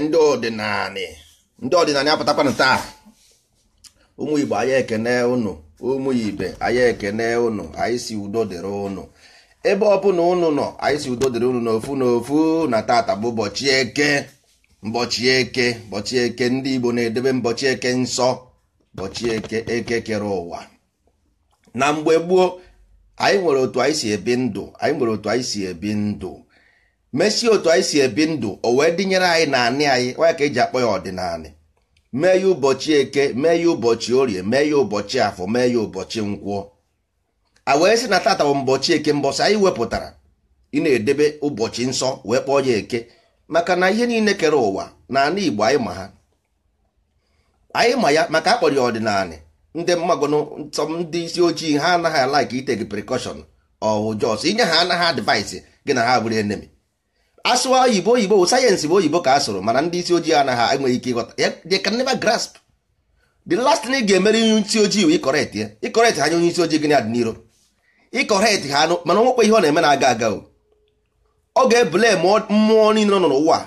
ndị ọdịnala ndị ọdịnala apụtakwana taa ụmụ igbo ekene ụnụ ụmụ ibe anyị ekene ụnụ anyị si udo dịrị ụnụ ebe ọbụla ụnụ nọ anyị si udo dịrị ụnụ n'ofu n'ofu na tata bụ ụbọchị eke mbọchị eke mbọchị eke ndị igbo na-edebe mbọchị eke nsọ mbọchị eke eke kere ụwa na mgbe gboo anyị nwere otu anyị si ebi ndụ anyị nwere otu anyị si ebi ndụ mesie otu anyị si ebi ndụ o wee dịnyere anyị na anị anyị onye ka eji akpọ ya ọdịnala mee ya ụbọchị eke mee ya ụbọchị orie mee ya ụbọchị afọ mee ya ụbọchị nkwụọ. a wee sị na tata bụ mbọchị eke mbọchị anyị wepụtara ị na-edebe ụbọchị nsọ wee kpọọ ya eke maka na ihe niile kere ụwa na anị igbo anyị ma ha anyị ma ya maka akpọrọ ya ọdịnala ndị mmagonụ ndị isi ojii ha anaghị alaiki itegi prekọshọn ọhụjọs inye ha anaghị advaisi gị na ha bụrụ enemi asụwa oyibo oyibo sayensị bụ oyibo ka a sụrụ mana ndị isi ojii anaghị enweghị ike ịghọta they can never grasp the last thing ị ga-emere onye ojii wee ịkọrekt ya ịkọrekt ha nye onye isi ojii gịnị adị n'iro ịkọrekt ha anụ mana onwekwa ihe ọ na-eme na-aga aga ọ ga-ebule mmụọ niile nọ n'ụwa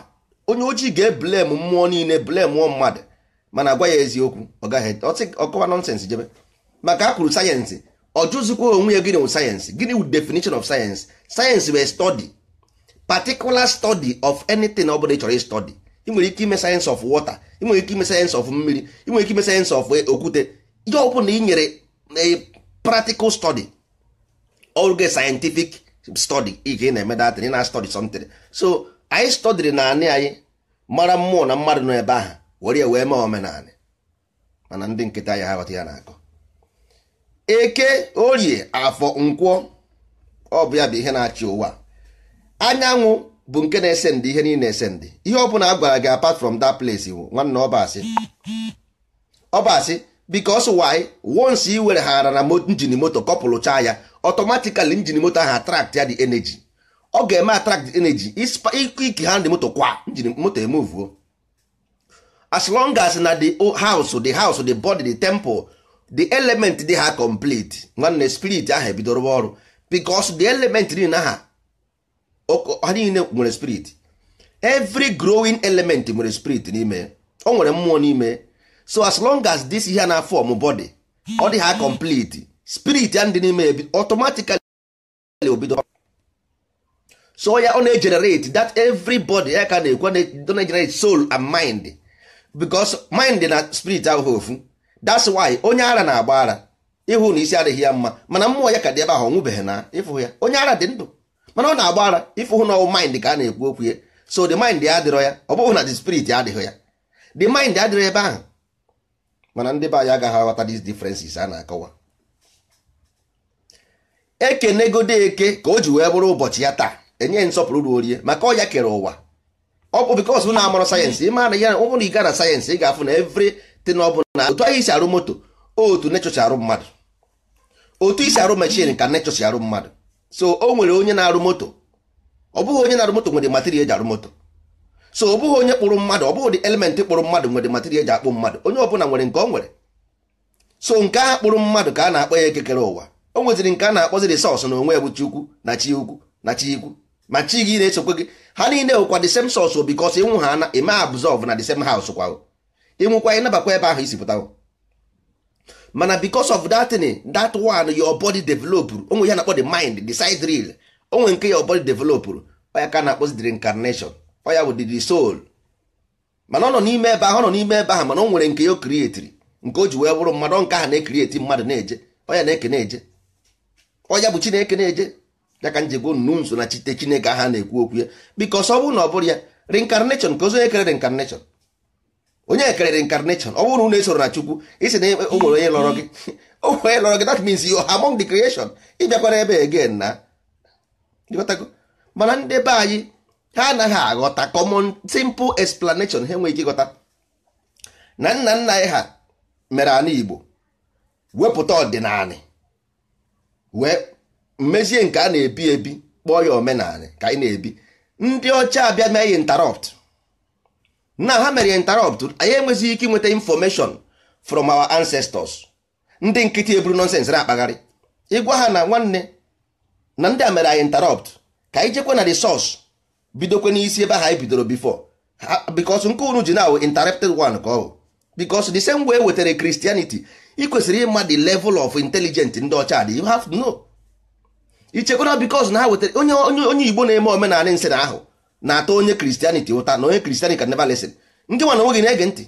onye ojii ga-ebule m mmụọ niile bule mụọ mmadụ mana agwa ya eziokwu ọ gaghị ọkọwa nọnsensị jebe maka a kwuru sayensị ọ jụzikwa onwe ya gịnị wụ sayensị gịnị wụ definition of sayensị sayensị bụ particular study of anything ọ bụla ị chọrọ ịstọdi ị nwere ike ime sayensị of water ị nwere ike ime sayensị of mmiri ị nwere ike ime sayensị of eh, okwute ihe ọ na ị nyere a eh, practical study oge scientific study ike na-eme datịn na-study something so anyị stọdiri na anị anyị mara mmụọ na mmadụ nọ ebe ahụ were wee mee omenala mana ndị nkịta ya ha ya na-akọ eke orie afọ nkwọ ọ ya bụ ihe na-achị ụwa anyanwụ bụ nke na ese ndị ihe niile na-ese ndị ihe ọ bụla a gwara gị apart from that place iwu nwanne ọbasị ọbasị because why once i were ha ara na njin moto kọpụlụcha ya automatically njin moto ahụ attract ya the energy ọ ga-eme attract the energy ike ha ndị moto kwa njin moto emuvuo as long as na the house the house the body the temple the element dị ha complete nwanne spirit ahụ ebidoro ọrụ because the element dị na ha niile nwere spirit every growing element nwere spirit n'ime o nwere mmụọ n'ime so as long as this ihe na form body ọ dị ha complete spirit ya ndị n'ime automatically obido so ya ọ na-egenerate that everybody ya ka na-ekwe na-egenerate soul and mind because mind na spirit ahụ ofu that's why onye ara na-agba ara ịhụ na isi adịghị ya mma mana mmụọ ya ka dị ebe ahụ ọ nwụbeghị na ịfụ ya onye ara dị ndụ mana ọ na-agba ara ịfụ hụ na ọwụ mind ka a na-ekwu okwu ya so the mind ya adịrọ ya ọ bụghị na the spirit adịghị ya the mind adịrọ ebe ahụ mana ndị be anyị agaghị aghọta these differences a na-akọwa ekenegodo eke ka o ji wee bụrụ ụbọchị ya taa enye nsọpụrụ orie maka ọ ya kere ụwa ọ bụ bikos na amụrụ sayensị ịma na ya ụbụrụ ị gara sayensị ị ga-afụ na evritin ọ bụla otu anyị si arụ moto otu nechọ arụ mmadụ otu isi arụ mechin ka nechọ arụ mmadụ so o nwere onye na-arụ moto ọ bụghị onye na-arụ moto nwere material eji arụ moto so ọ bụghị onye kpụrụ mmadụ ọ bụghị dị kpụrụ mmadụ nwere material eji akpụ mmadụ onye ọbụla nwere nke ọ nwere so nke a kpụrụ mmadụ ka a na-akpọ ya ekekere ụwa o nweziri nke a na-akpọzi resọs na onwe ya bụ chukwu na chi ukwu na chi ikwu ma chi gị na-esokwe gị ha niile nwekwa the same source bikos ịnwụ ha na eme absorb na the same house kwa ịnwụkwa ịnabakwa ebe ahụ isi mana because of that thing that one your body developed onwe ya na-akpọ the mind the side real onwe nke your body develop oya ka na-akpọzi the reincarnation oya bụ the soul mana ọ nọ n'ime ebe ahụ ọ nọ n'ime ebe ahụ mana o nwere nke ya o nke o ji wee bụrụ mmadụ nke ahụ na-ekrieti mmadụ na-eje oya na-eke na-eje oya bụ chineke na-eje ya ka njegbo nso na chite chineke aha na-ekwu okwu ya because ọ bụrụ na ọ bụrụ ya reincarnation ka ozo kere reincarnation onye kerere incarnation ọ bụrụ na unu esoro na chukwu isi na e- o onye lọrọ gị onye lọrọ gị that means you among the creation ịbịakwara ebe again na mana ndị be anyị ha anaghị aghọta common simple explanation ha enweghị ịgọta na nna nna anyị ha mere ana igbo wepụta ọdịnala wee mmezie nke a na-ebi ebi kpọọ ya omenala ka anyị na-ebi ndị ọcha abịa mee interrupt na ha mere interrupt anyị enweghị ike inweta information from our ancestors ndị nkịtị eburu nonsense na-akpagharị ịgwa ha na nwanne na ndị a mere anyị interrupt ka anyị jekwe na the source bidokwe n'isi ebe ahụ anyị bidoro before because nke unu ji na interrupted one ka ọ bụ because the same way e wetara Christianity ị kwesịrị ịma the level of intelligence ndị ọcha dị you have to know ichekwara because na ha wetara onye onye Igbo na-eme omenala nsị na ahụ na-atọ onye kristianity ụta na onye kristianity can never listen ndị nwana nwoke na-ege ntị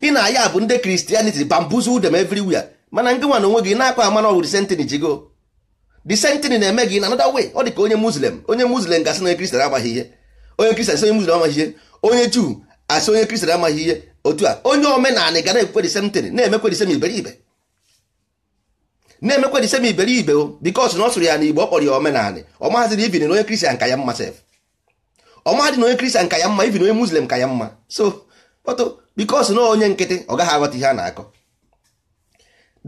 ị na ya bụ ndị kristianity bambuzu dem wia mana ndị nwana onwe gị na akpa ama na ọ bụ disentini jigo disentini na-eme gị na another way ọ dị ka onye muslem onye muslim gasị na onye kristian amaghị ihe onye kristian asị onye muslim amaghị ihe onye juu asị onye kristian amaghị ihe otu a onye omenanị ga na-ekwe disentini na-emekwe disem iberibe na-emekwa the same iberibe because na ọ sụrụ ya na igbo ọ kpọrọ ya omenanị ọmahaziri ibin na onye kristian ka ya mma sef ọmahadị na onye kristian ka ya mma ibin onye muslim ka ya mma so kpọtụ because na onye nkịtị ọ gaghị aghọta ihe a na-akọ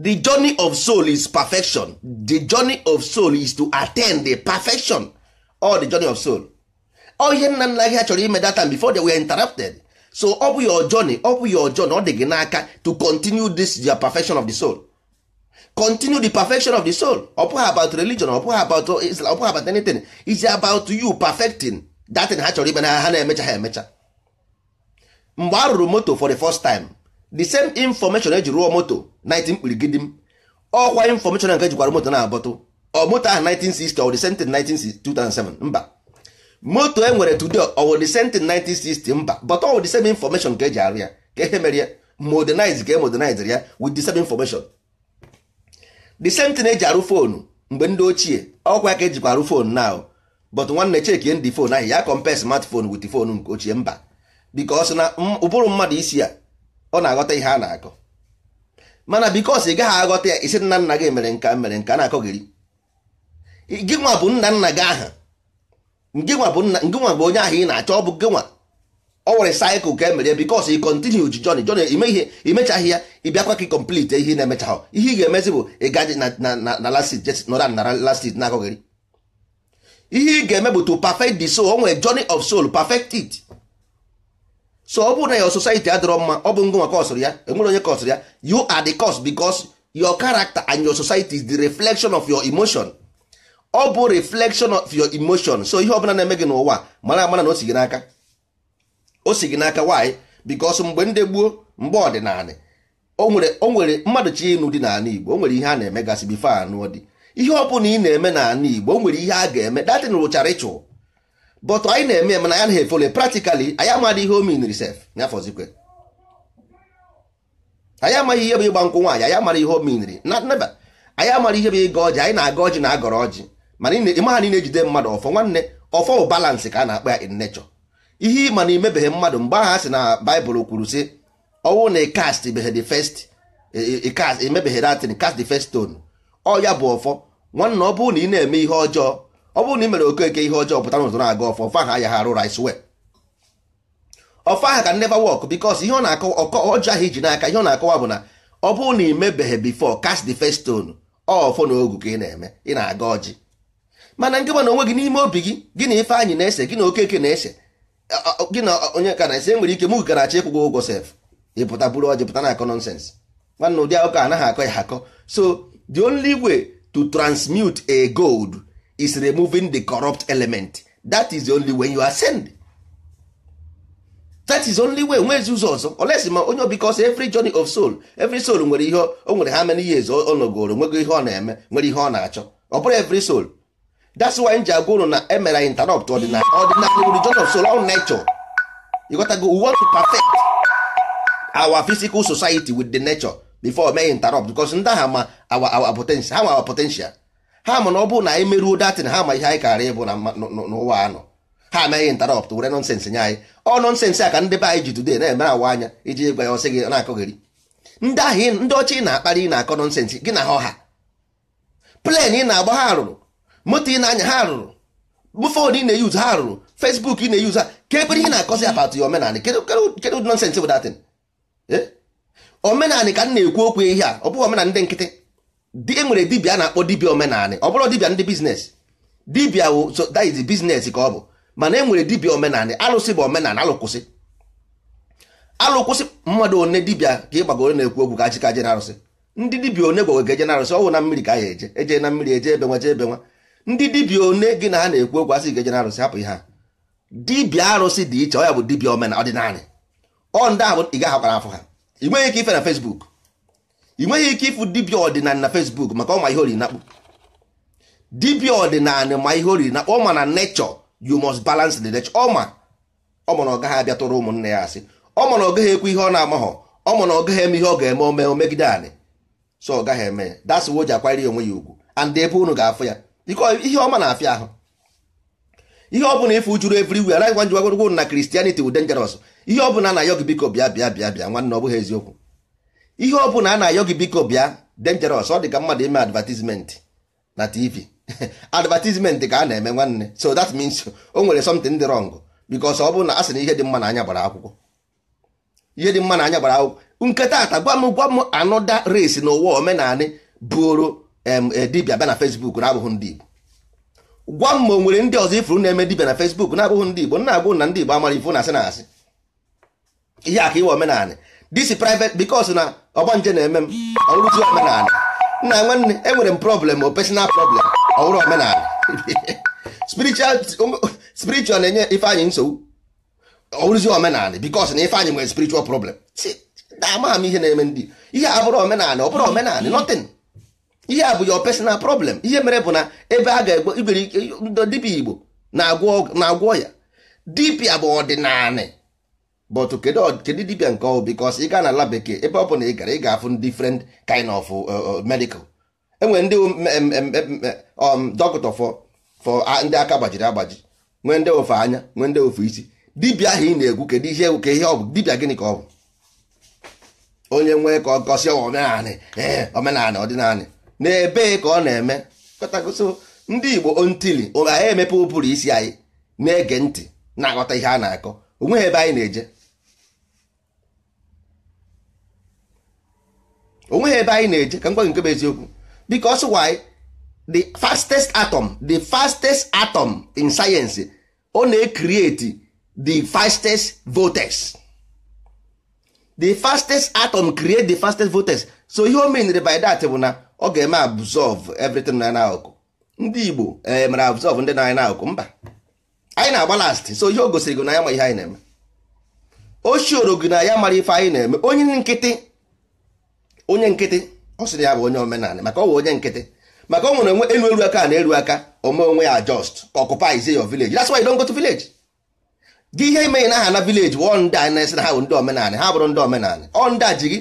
the journey of soul is perfection the journey of soul is to attain the perfection or the journey of soul ọ ihe nna nna gị ha chọrọ ime data before they were interrupted so ọ bụ your journey ọ bụ your journey ọ dị gị n'aka to continue this your perfection of the soul continue the perfection of the soul ọ about religion ọ about Islam ọ about anything is about you perfecting that thing ha chọrọ ime na ha na-emecha ha emecha mgbe a rụrụ moto for the first time the same information eji rụọ moto 19 kpirigidi m ọkwa information nke jikwara moto na-abọtụ ọ moto ahụ 1960 ọ the same thing mba moto e nwere today ọ the same thing 1960 mba but ọ the same information eji arụ ya ka e mere ya modernize ka e modernize ya with the same information the same thing eji arụ foonu mgbe ndị ochie ọkwa ka ejikwa arụ foonu na but nwanne chekie ndị fon ahụ ya compare smartphone wit fon nke ochie mba because na ụbụrụ mmadụ isi ya ọ na-aghọta ihe a na-akọ mana bikos ị gaghị aghọta ya isi nna nna gị mere nka mere nka na-akọ gị gị nwa bụ nna nna gị aha onye ahụ ị na-achọ ọ bụ gị ọ nwere saịkụl ka emere bikos ị kọntinu ji jọn jọn imechaghị ya ịbịakwa ka ị komplite ihe na-emechaghị ihe ị ga-emezi bụ ịgaji na lasit jes nọra na lasit na-akọghịrị ihe ị ga-eme bụ to perfect the soul o nwere journey of soul perfect it so ọ bụrụ na your society adịrọ mma ọ bụ ngwa kọsụrụ ya enwere onye kọsụrụ ya you are the cause because your character and your society is the reflection of your emotion ọ bụ reflection of your emotion so ihe ọbụla na-eme gị n'ụwa mara amara na o si gị n'aka o si gị n'aka nwaanyị bikos mgbe ndị gboo mgbe ọdịnala onwere nwere mmadụ chi ịnụ dị n'ala Igbo o nwere ihe a na-emegasị bifo anụ dị ihe ọ bụla ị na-eme n'ala Igbo o nwere ihe a ga-eme datin rụchara ịchụ bọtụ anyị na-eme mana ya na-efole praktikali anyị amadị ihe omin risef nyafọzikwe anyị amaghị ihe bụ ịgba nkwụ nwaanyị anyị amara ihe ominri na neba anyị amara ihe bụ ịga ọjị anyị na-aga ọjị na agọrọ ọjị mana ịmaha niile jide mmadụ ọfọ nwanne ọfọ balansị ka a na-akpa ya in nature ihe ịma na imebeghị mmadụ mgbe aha sị na baịbụl kwuru sị ọnwụ na cast emebeghị datin e, e, e, cast the first stone ọ bụ ọfọ nwanna ọ na ị na-eme ihe ọjọọ ọ bụrụ na ị mere okeke ihe ọjọọ pụta n'ụzọ na-aga ọfọ ọfọ ahụ arụ rice well ọfọ aha ka neva work because ihe ọ na-akọwa ọjọọ ahụ iji n'aka ihe ọ na-akọwa bụ na ọ bụrụ na imebeghị before cast the first stone ọfọ na ogu ka ị na-eme ị na-aga ọjị mana nke na onwe gị n'ime obi gị gị na ife anyị na-ese gị na okeke na-ese gị na onye ka na-esi enwere ike mụ gara achọ ịkwụgwọ ụgwọ sef ịpụta bụrụ ọ na akọ nọnsens nwanne ụdị akụkọ anaghị akọ ya akọ so the only way to transmute a gold is removing the corrupt element that is the only way you ascend that is only way nwezi ụzọ ọzọ olesi ma onye because every journey of soul every soul nwere ihe o nwere how many years ọ nọgoro nwego ihe ọ na-eme nwere ihe ọ na-achọ ọ bụrụ every soul that's why m ji agwa ụlọ na emere anyị interrupt ọdịnala ọdịnala religion of soul on nature you gotta go we want to perfect our physical society with the nature before mee interrupt because ndị agha ma our our potential ha ma our potential ha ma na ọ bụrụ na anyị merụo datin ha ma ihe anyị kara ịbụ n'ụwa anọ ha amaghị interrupt were nọnsensị nye anyị ọ nọnsensị a ka ndị be anyị ji today na emere awa anya iji gwa ya ọsị gị na-akọgheri ndị ahụ ndị ọcha ị na-akparị ị na-akọ nọnsensị gị na ha ọha plen ị na-agba ha rụrụ moto ị na-anya ha rụrụ foonu ị na-eyuzu ha rụrụ fesbuk ị na-eyuzu ha ka ihe na-akọzi apatụ ya omenanị kedụ nọnsensị bụ datin eh? omenanị ka m na-ekwu okwu ihe a ọ bụghị omenanị ndị nkịtị e nwere dibịa na-akpọ dibịa omenanị ọ bụrụ dibịa ndị biznes dibịa wụ so that is biznes ka ọ bụ mana e nwere dibịa omenanị alụsị bụ omenanị alụkwụsị alụkwụsị mmadụ one dibịa ka gbagoro na-ekwu okwu ka ji je na arụsị ndị dibịa one gwagwa ga-eje na arụsị ọ na mmiri ka a ya eje eje na mmiri eje ebe nwa ndị dibịa one gị na ha na-ekwu okwu asị ga-eje na arụsị hapụ ihe ha dibịa arụsị dị iche ọ ya bụ dibịa omenala ọdịnala ọ ndị ahụ ị gaghị gaghakpara afọ ha ị nweghị ike ife na Facebook ị nweghị ike ịfụ dibịa ọdịnala na Facebook maka ọma ihe oriri nakpụ dibịa ọdịnala ma ihe oriri nakpụ ọma na nature you must balans the n'echọ ọma ọma na ọ gaghị abịa tụrụ ụmụnne ya asị ọma na ọ gaghị ekwu ihe ọ na-amaghọ ọma ọ gaghị eme ihe ọ ga-eme ome omegide anị so ọ gaghị eme ya dasị ji akwanyere onwe ya ugwu and ebe unu ga-afụ ya biko ihe ọma na-afịa ahụ ihe ọ bụla ife ujuru everywhere anaghị gwa njigwagwogwo na kristianity bụ dangerous ihe ọ bụla na-ayọ gị biko bịa bịa bịa bịa nwanne ọ eziokwu ihe ọ bụla a na-ayọ gị biko bịa dangerous ọ dị ka mmadụ ime advertisement na tv advertisement ka a na-eme nwanne so that means o nwere something dị wrong because ọ bụrụ na a sị na ihe dị mma na anya gbara akwụkwọ ihe dị mma na anya gbara akwụkwọ nketa ata gwa m gwa m anọda race n'ụwa omenanị bụrụ Eh, dibia bịa na fesbuk na-abụghị ndị Igbo gwa m ma o ndị ọzọ ifuru na-eme dibia na fesbuk na-abụghị ndị Igbo na-agwụ na ndị Igbo amara ifu na asị na asị ihe aka iwe omenala disi private because na ọgbanje na-eme m ọrụzi omenala nna nwanne enwere m problem o personal problem ọhụrụ omenala spiritual na-enye ifeanyị nsogbu ọrụzi omenala because na ifeanyị nwere spiritual problem amaghị m ihe na-eme ndị ihe abụrụ omenala ọ bụrụ omenala nothing ihe a bụ your personal problem ihe mere bụ na ebe a ga-egbo igwere dibịa igbo na-agwọ ya dibịa bụ ọdịnala but kedu dibịa nke ọ because ị gaa na ala bekee ebe ọ bụ na ị gara ị ga-afụ different kind of uh, uh, medical enwere ndị um, um, dọkịta for ndị aka gbajiri agbaji nwee ndị ofe anya nwee ndị ofe isi dibịa ahụ ị na-egwu kedu ihe ka ihe ọ bụ dibịa gịnị ka ọ bụ onye nwee ka ọ gọsi omenanị ee eh, omenanị na ka ọ na-eme kọtagoso ndị Igbo ontili anyị emepe ụbụrụ isi anyị na-ege ntị na-aghọta ihe a na-akọ onweghị ebe anyị na-eje onweghị ebe anyị na-eje ka m gwa nke bụ eziokwu because why the fastest atom the fastest atom in science ọ na-ecreate the fastest vortex the fastest atom create the fastest vortex so ihe o menere by that bụ na ọ ga-eme absorb everything na n'akụkụ ndị Igbo e, mere absorb ndị na-anyị n'akụkụ mba anyị na-agba last so ihe o gosiri gị na ya ma ihe anyị na-eme o shioro gị na ya mara ife anyị na-eme onye nkịtị onye nkịtị ọ sịrị ya bụ onye omenala maka ọ bụ onye nkịtị maka ọ nwere elu elu aka na elu aka ome onwe ya just occupy your village that's why you don't go to village gị ihe ime na aha na village wụ ndị anyị na-esi na ha bụ ndị omenala ha bụrụ ndị omenala ọ ndị a ji gị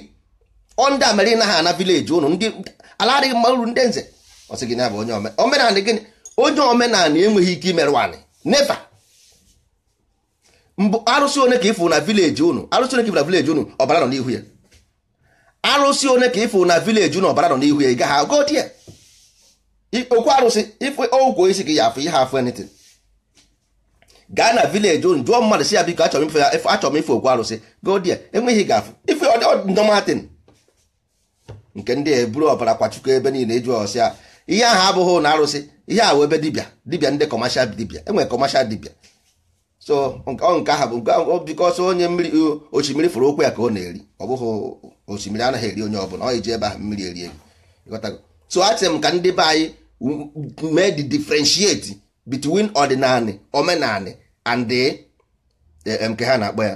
ọ ndị a na ha na village ụnụ ndị ala adịghị mma uru ndị nze ọ sị gị na bụ onye omenala gịnị onye omenala enweghị ike imerụ anị neva. mbụ arụsị one ka ịfụ na vileji unu arụsị one ka ịfụ na vileji unu ọbara nọ n'ihu ya arụsị one ka ịfụ na vileji unu ọbara nọ n'ihu ya ị gaghị agụ di ya okwu arụsị ife ogwo isi gị ya afụ ihe afụ enitin gaa na vileji unu jụọ mmadụ si ya biko achọrọ m ife okwu arụsị godi ya enweghị ga-afụ ife ọdịndọmatin nke ndị eburu ọbara kwachukwu ebe niile ịjụ ọsịa ihe ahụ abụghị na arụsị ihe ahụ ebe dibịa dibịa ndị kọmashal dibịa enwere kọmashal dibịa so nke ahụ bụ bikọsọ onye mmiri osimiri fụrụ okwu ya ka ọ na-eri ọ bụghị osimiri anaghị eri onye ọbụla ọ iji ebe ahụ mmiri eri eri so achị m ka ndị be anyị mee de differentiate bitwin ọdịnala omenala and eh, eh, nke ha na-akpọ ya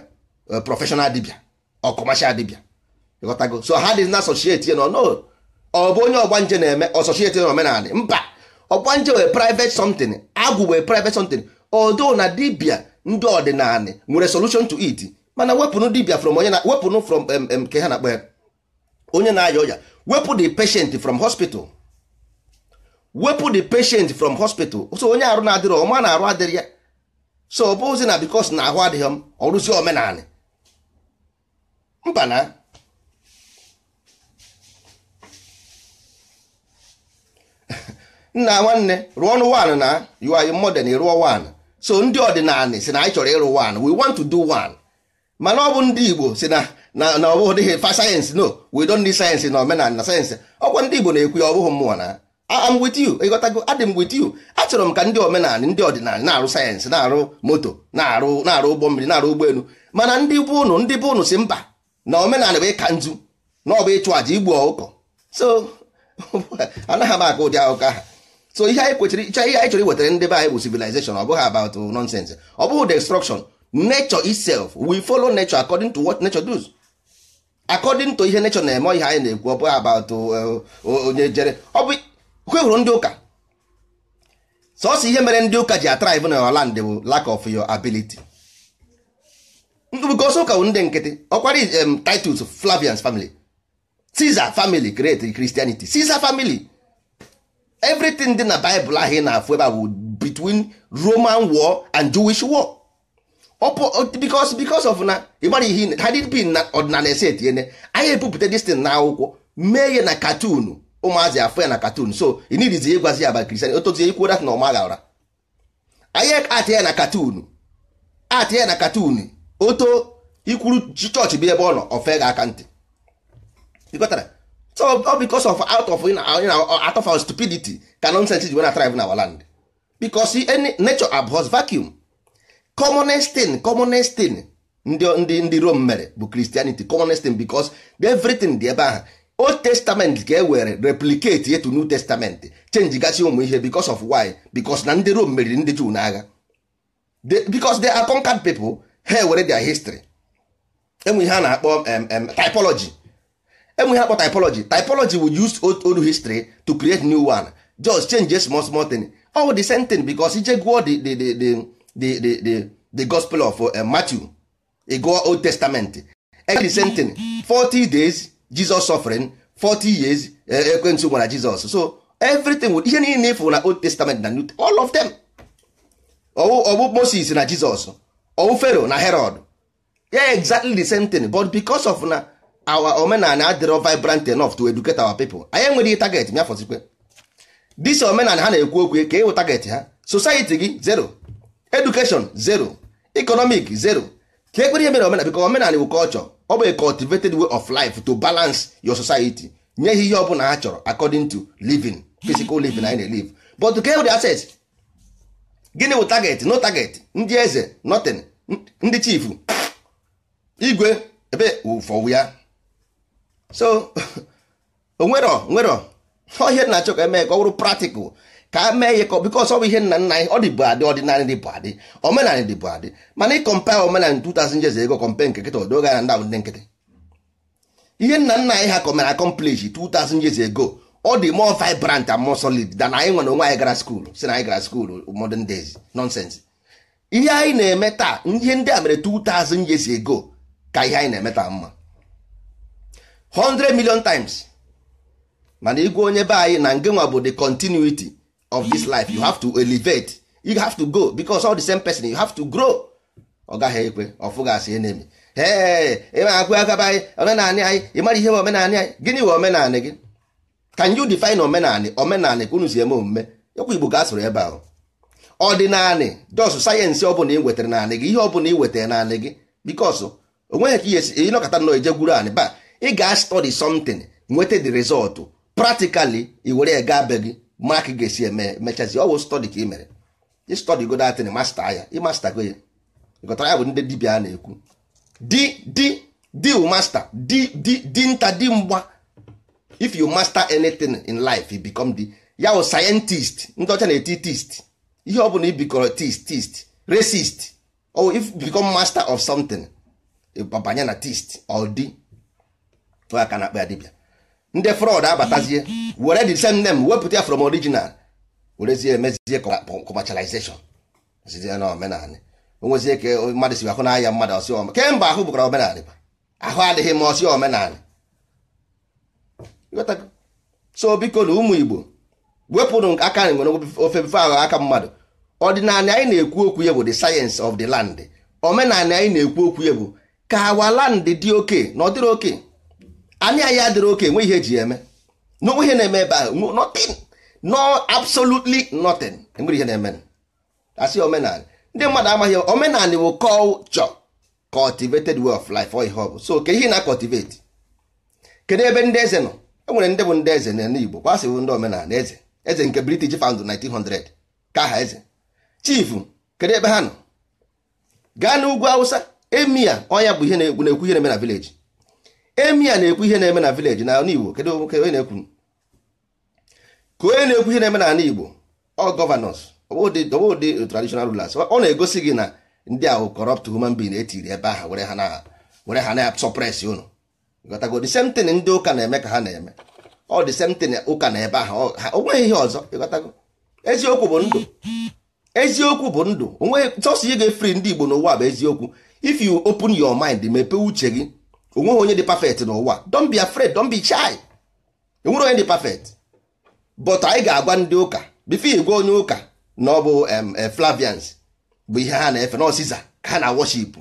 eh, professional dibịa ọ kọmashal dibịa ịghọtago so ha dị na asosieti nọ no ọ bụ onye ọgbanje na-eme asosieti na omenala mba ọgbanje wey private something agwụ wey private something odo na dibia ndị ọdịnala nwere solution to it mana wepụnụ dibia from onye na wepụnụ from ke ha na-akpọ ya onye na-aya ọya wepụ the patient from hospital wepụ the patient from hospital so onye arụ na-adịrọ ọma na-arụ adịrị ya so ọ bụzi na because na ahụ adịghị m ọrụzi omenala mba na nna nwanne rụọ ọnụ wan na you mọden modern wan so ndị ọdịnala si na anyị chọrọ ịrụ wan we want to do one mana ọ bụ ndị Igbo si na na ọ bụghị fa sayensị no we don't need sayensị na omenala na sayensị ọkwa ndị Igbo na-ekwu ya ọ bụghị mmụọ na am with you ịghọtago adị with you achọrọ m ka ndị omenala ndị ọdịnala na-arụ sayensị na-arụ moto na-arụ na-arụ ụgbọ mmiri na-arụ ụgbọelu mana ndị bụ ụnụ ndị bụ ụnụ si mba na omenala bụ ịka nzu na ọ bụ ịchụ àjà igbu ọkụkọ so anaghị m aka ụdị akụkọ ahụ so ihe anyị kwechiri ihe anyị chọrọ iwetara ndị be anyị bụ civilization ọ bụghị about nonsense ọ bụghị destruction nature itself we follow nature according to what nature does according to ihe nature na-eme ihe anyị na-ekwu ọ bụghị about uh, uh, onye jere ọ bụ kwe hụrụ ndị ụka sọsọ ihe mere ndị ụka ji atrive na land bụ lack of your ability because ụka bụ ndị nkịtị ọkwari um, Titus Flavian's family Caesar family create Christianity Caesar family everything dị na bible ahụ ị na-afụ ebe a bụ between roman war and jewish war because because of na ịgbara ihe na ọdịnala esi etinyene anyị ebupụta destin na akwụkwọ mee ya na katunu ụmụazị afọ ya na katun so ịgwazi ya na ọma ya na katun ya na katun oto ikwuru chọọchị bụ ebe ọ nọ ofe ga aka ntị so all because of out of you know, out of our stupidity ka nonsense ji wena thrive in our land because any nature abhors vacuum commonest thing commonest thing ndị ndị ndị Rome mere bụ Christianity commonest thing because everything dị ebe ahụ Old Testament ka e were replicate yetu to New Testament change gasị ụmụ ihe because of why because na ndị Rome meriri ndị Jew n'agha because they are conquered people ha were their history enwe ihe a na-akpọ typology enweghị akpọ typology typology will use old old history to create new one just change a small small thing all the same thing because ije gụọ the the the the the the the gospel of uh, Matthew e gụọ old testament the same thing 40 days Jesus suffering 40 years uh, ekwentị gwara Jesus so everything with ihe niile ifụ na old testament na new all of them ọwụ Moses na Jesus ọwụ Pharaoh na Herod yeah exactly the same thing but because of na our omenala adịrọ vibrant enough to educate our people anyị enweghị target ya fọzikwe dis omenala ha na-ekwu okwu ka ịwụ target ha society gị zero education zero economic zero ka ekpere ihe mere omenala biko omenala bụ culture ọ bụ a cultivated way of life to balance your society nye ihe ihe ọbụla ha chọrọ according to living physical living anyị na-elive but ka the e assets gịnị bụ target no target ndị eze notin ndị chief igwe ebe ụfọwụ ya so onwerọ nwerọ ihe na-achọ ka emee ka ọ bụrụ practical ka e mee ihe ka because ọ bụ ihe nna nna anyị ọ dịbụ adị ọdịnala dịbụ adị omenala dịbụ adị mana ịkọmpa omenala 2000 years ago kọmpe nke nkịta odoga na ndabụ ndị nkịtị ihe nna nna anyị ha kọmere accomplish 2000 years ego ọ dị more vibrant and more solid than anyị nwere onwe anyị gara school si na anyị gara school modern days nonsense ihe anyị na-eme taa ihe ndị a mere 2000 years ego ka ihe anyị na-eme taa mma 100 million times mana igwe onye be anyị na ngenwa bụ the continuity of this life you have to elevate you have to go because all the same person you have to grow ọ gaghị ekwe ọfụgasị ihe na-eme ịma agụ agaba anyị omenanị anyị ịmara ihe omenanị anyị gịnị we omenanị gị can you define omenanị omenanị ka unu si eme omume okwu igbo ga asụrụ ebe ahụ ọdịnanị jọsụ sayensị ọbụla ị wetara naanị gị ihe ọbụla ị wetara naanị gị bikos onweghị ka ihe si ịnọkọta nnọọ ije gwuru anị baa ị ga-study something nweta the result practically i were ya gaa be gị mark ga-esi eme mechazi ọ bụ study ka ị mere ịstọdi go datin masta ya ịmasta go ya ịgọtara ya bụ ndị dibia a na-ekwu di di di masta di di di nta di mgba if you master anything in life you become the ya bụ scientist ndị ọcha na-eti tist ihe ọ bụla ibikọrọ tist tist racist or if you become master of something banye na tist or di aka na akpa ya dibịa ndị fraud abatazie were the same name wepụta ya from original werezie emezie commercialization zizie na omenala onwezie ka mmadụ si ahụ n'anya mmadụ ọsị kemgbe ahụ bụkwara omenala ahụ adịghị ma ọsị omenala so biko na ụmụ igbo wepụrụ aka nwere ofe bife ahụ aka mmadụ ọdịnala anyị na-ekwu okwu ya bụ the science of the land omenala anyị na-ekwu okwu ya bụ ka awa land dị oke na ọ oke anyị anyị adịrị oke nwe ihe eji eme n'onwe ihe na-eme ebe ahụ nothing no absolutely nothing enwere ihe na-eme asị omenala ndị mmadụ amaghị omenala bụ culture cultivated way of life ọ ihe so ke ihe na cultivate kedu ebe ndị eze nọ enwere ndị bụ ndị eze n'ala Igbo kwasị bụ ndị omenala eze eze nke British found 1900 ka aha eze chief kedu ebe ha nọ gaa n'ugwu Hausa emia ọnya bụ ihe na-ekwu ihe na-eme na village emi a na-ekwu ihe na-eme na vileji na ala Igbo kedu onye na-ekwu ka onye na-ekwu ihe na-eme na ala Igbo ọ gọvanọs ọbụdị traditional rulers ọ na-egosi gị na ndị ahụ corrupt human being etiri ebe ahụ were ha na-suppress unu gotago the same thing ndị ụka na-eme ka ha na-eme ọ dị same ụka na ebe ahụ o nweghị ihe ọzọ gotago eziokwu bụ ndụ eziokwu bụ ndụ onweghị sọsọ ị ga-efri ndị Igbo n'ụwa bụ eziokwu if you open your mind mepee uche gị onweghị onye dị perfect n'ụwa don bi afraid don bi chai enwere onye dị perfect but anyị ga-agwa ndị ụka bifo gwa onye ụka na ọ bụ eh, Flavians bụ ihe ha na-efe na Caesar ka ha na worship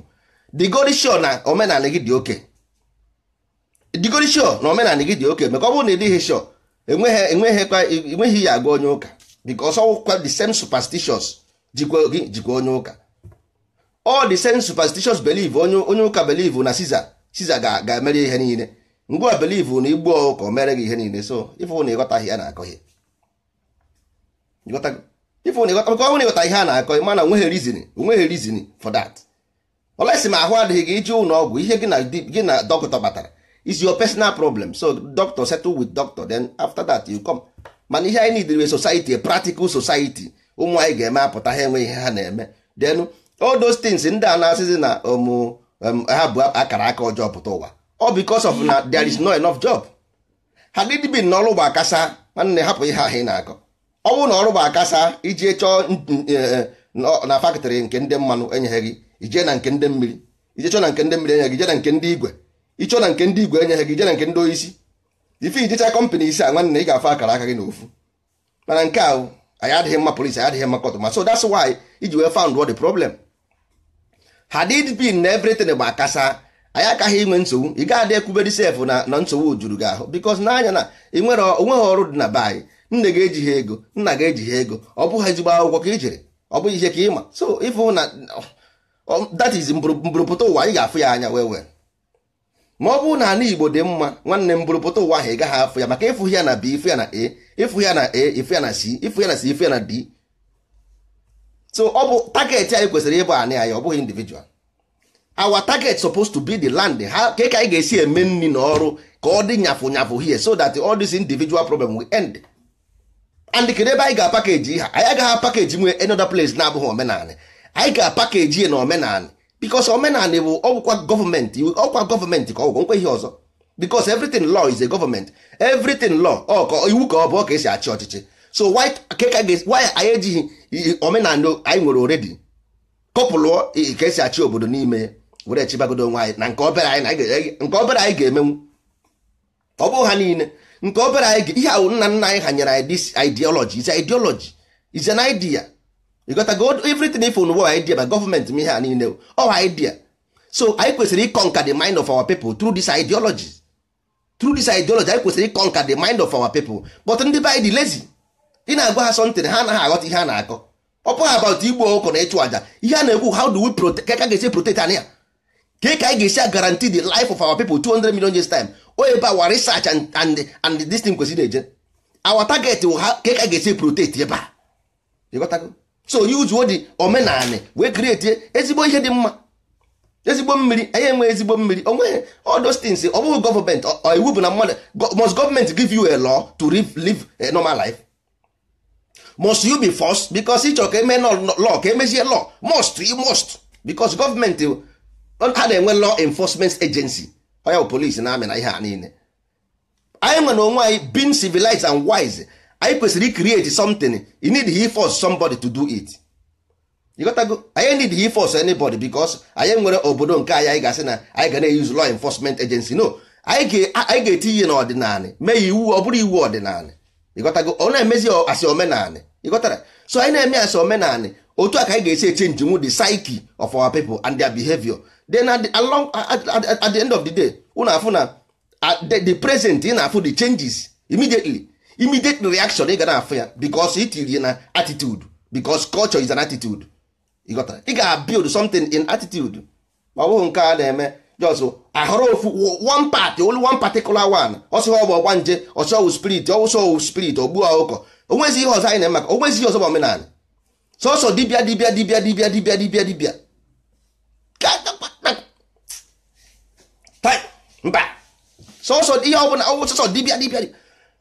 digodisho na omenala gị dị oke digodisho na omenala gị dị oke maka ọ bụrụ na ịdịghị dịghị sho enweghị ya agwa onye ụka because ọwụkwa the same superstitious jikwa gị jikwa onye ụka all the same superstitious believe onye ụka believe na Caesar siza ga-emere ihe niile ngwa belivu na igbu ọgụ ka o mere gị ihe niile so ifu na ịghọtaghị na-akọ ihe ifu na ịghọta ka ọ ịghọta ihe a na-akọ mana onweghị rizin onweghị rizin for that olesi ma ahụ adịghị gị iji ụlọ ọgwụ ihe gị na dọkịta batara is your personal problem so doctor settle with doctor then after that you come mana ihe anyị nidiri society a practical society ụmụ anyị ga-eme apụta ha enweghị ihe ha na-eme then all those things ndị a na-asịzi na ọmụ um, Um, ha bụ akara aka ọjọọ pụta ụwa ọ because of na there is no enough job ha dịdịbi na ọrụ bụ akasa nwanne hapụ ihe ahụ ị na-akọ ọ bụrụ na ọrụ bụ akasa iji chọọ e, e, na fakịtịrị nke ndị mmanụ enyeghị ije na nke ndị mmiri ije chọọ na nke ndị mmiri enyeghị ije na nke ndị igwe ịchọọ na nke ndị igwe enyeghị ije na nke ndị oisi ife ijecha kọmpanị isi a nwanne ị ga-afụ akara aka gị n'ofu mana nke a anyị adịghị mma polisi anyị adịghị mma kọtụ ma so that's why iji wee found what the problem hadid bin na everything gba akasa anyị akaghị inwe nsogbu ị gaghị adị ekwubere sef na na nsogbu juru gị ahụ bikos n'anya na ịnwere onweghị ọrụ dị na be anyị nne ga ejighị ego nna ga-eji ejighị ego ọ bụghị ezigbo akwụkwọ ka i e jere ọ bụghị ihe ka ịma so ịfụ na that is mbụrụpụta ụwa anyị ga-afụ ya anya wee wee ma ọ bụrụ na ala igbo dị mma nwanne m bụrụpụta ụwa ahụ ị gaghị afụ ya maka ịfụ ya na b ịfụ ya na a ịfụ ya na a ịfụ ya na c ịfụ ya na c ịfụ ya na d so ọ bụ target anyị kwesịrị ịbụ anị anyị ọ bụghị individual our target supposed to be the land ha ka ka anyị ga-esi eme nri na ọrụ ka ọ dị nyafụ nyafụ here so that all this individual problem will end and kedu ebe anyị ga-apakeji ha anyị agaghị apakeji nwee another place na-abụghị omenala anyị ga-apakeji ya na omenanị because omenanị bụ ọgwụkwa gọọmenti ọkwa gọọmenti ka ọgwụgwọ nkwe ihe ọzọ because everything law is a government everything law ọ ka iwu ka ọ bụ ọ ka esi achị ọchịchị so why anyị ejighị omenala anyị nwere oredi kọpụlụọ ka esi achị obodo n'ime were chibagodo nwaanyị na nke obere anyị ga-emenwu ọ bụ ha niile nke obere anyị ihe ahụ nna nna anyị hanyere anyị dis ideology is ideology is an idea you got to go everything if unu idea by gọọmenti ma ihe a niile ọ idea so anyị kwesịrị ịkọnka the mind of our people through this ideology through this ideology anyị kwesịrị ịkọnka the mind of our people but ndị be anyị ị na-agwa ha sọntịn ha anaghị aghọta ihe a na-akọ ọpụ about igbu ọkụkọ na ịchụ aja ihe a na-ekwu how do we ka ga-esi protect anya ka ka anyị ga-esi guarantee the life of our people 200 million years time o ebe our research and and and this thing kwesịrị eje our target wụ ha ka ka ga-esi protect ebe a ịghọtago so yuzuo dị omenala wee create ezigbo ihe dị mma ezigbo mmiri anyị enwe ezigbo mmiri onweghị odostins those things ọ bụghị gọọmenti iwu bụ na mmadụ must gọọmenti give you a law to live normal life must you be forced because ịchọ ka eme law ka emezie law must you must because gọọmenti ha na-enwe law enforcement agency oya bụ polisi na amị na ihe a niile anyị nwe na onwe anyị being civilized and wise anyị kwesịrị create something you need he force somebody to do it you got to go anyị need he force anybody because anyị nwere obodo nke anyị anyị ga-asị na anyị ga na-use law enforcement agency no anyị ga-eti ihe n'ọdịnala mee iwu ọ bụrụ iwu ọdịnala ịghọtago ọ na-emezi asị omenanị ịghọtara so anyị na-eme asị omenanị otu a ka anyị ga-esi echenji nwu the psyche of our people and their behavior then at the, along, at, at, at the end of the day unu afụ na the, the present ị na-afụ the changes immediately immediate reaction ị ga na-afụ ya it itiri na attitude because culture is an attitude ịghọtara ị ga-build something in attitude ma ọ bụghị nke a na-eme just ahọrọ ofu one party only one particular one ọsọ ọ ọgba nje ọsịghọ spirit ọwụsọ spirit ogbuo ọkụkọ onwezi ihe ọzọ anyị na-emaka onwezi ihe ọzọ bụ omenala sọsọ dibịa dibịa dibịa dibịa dibịa dibịa dibịa mba sọsọ ihe ọbụla sọsọ dibịa dibịa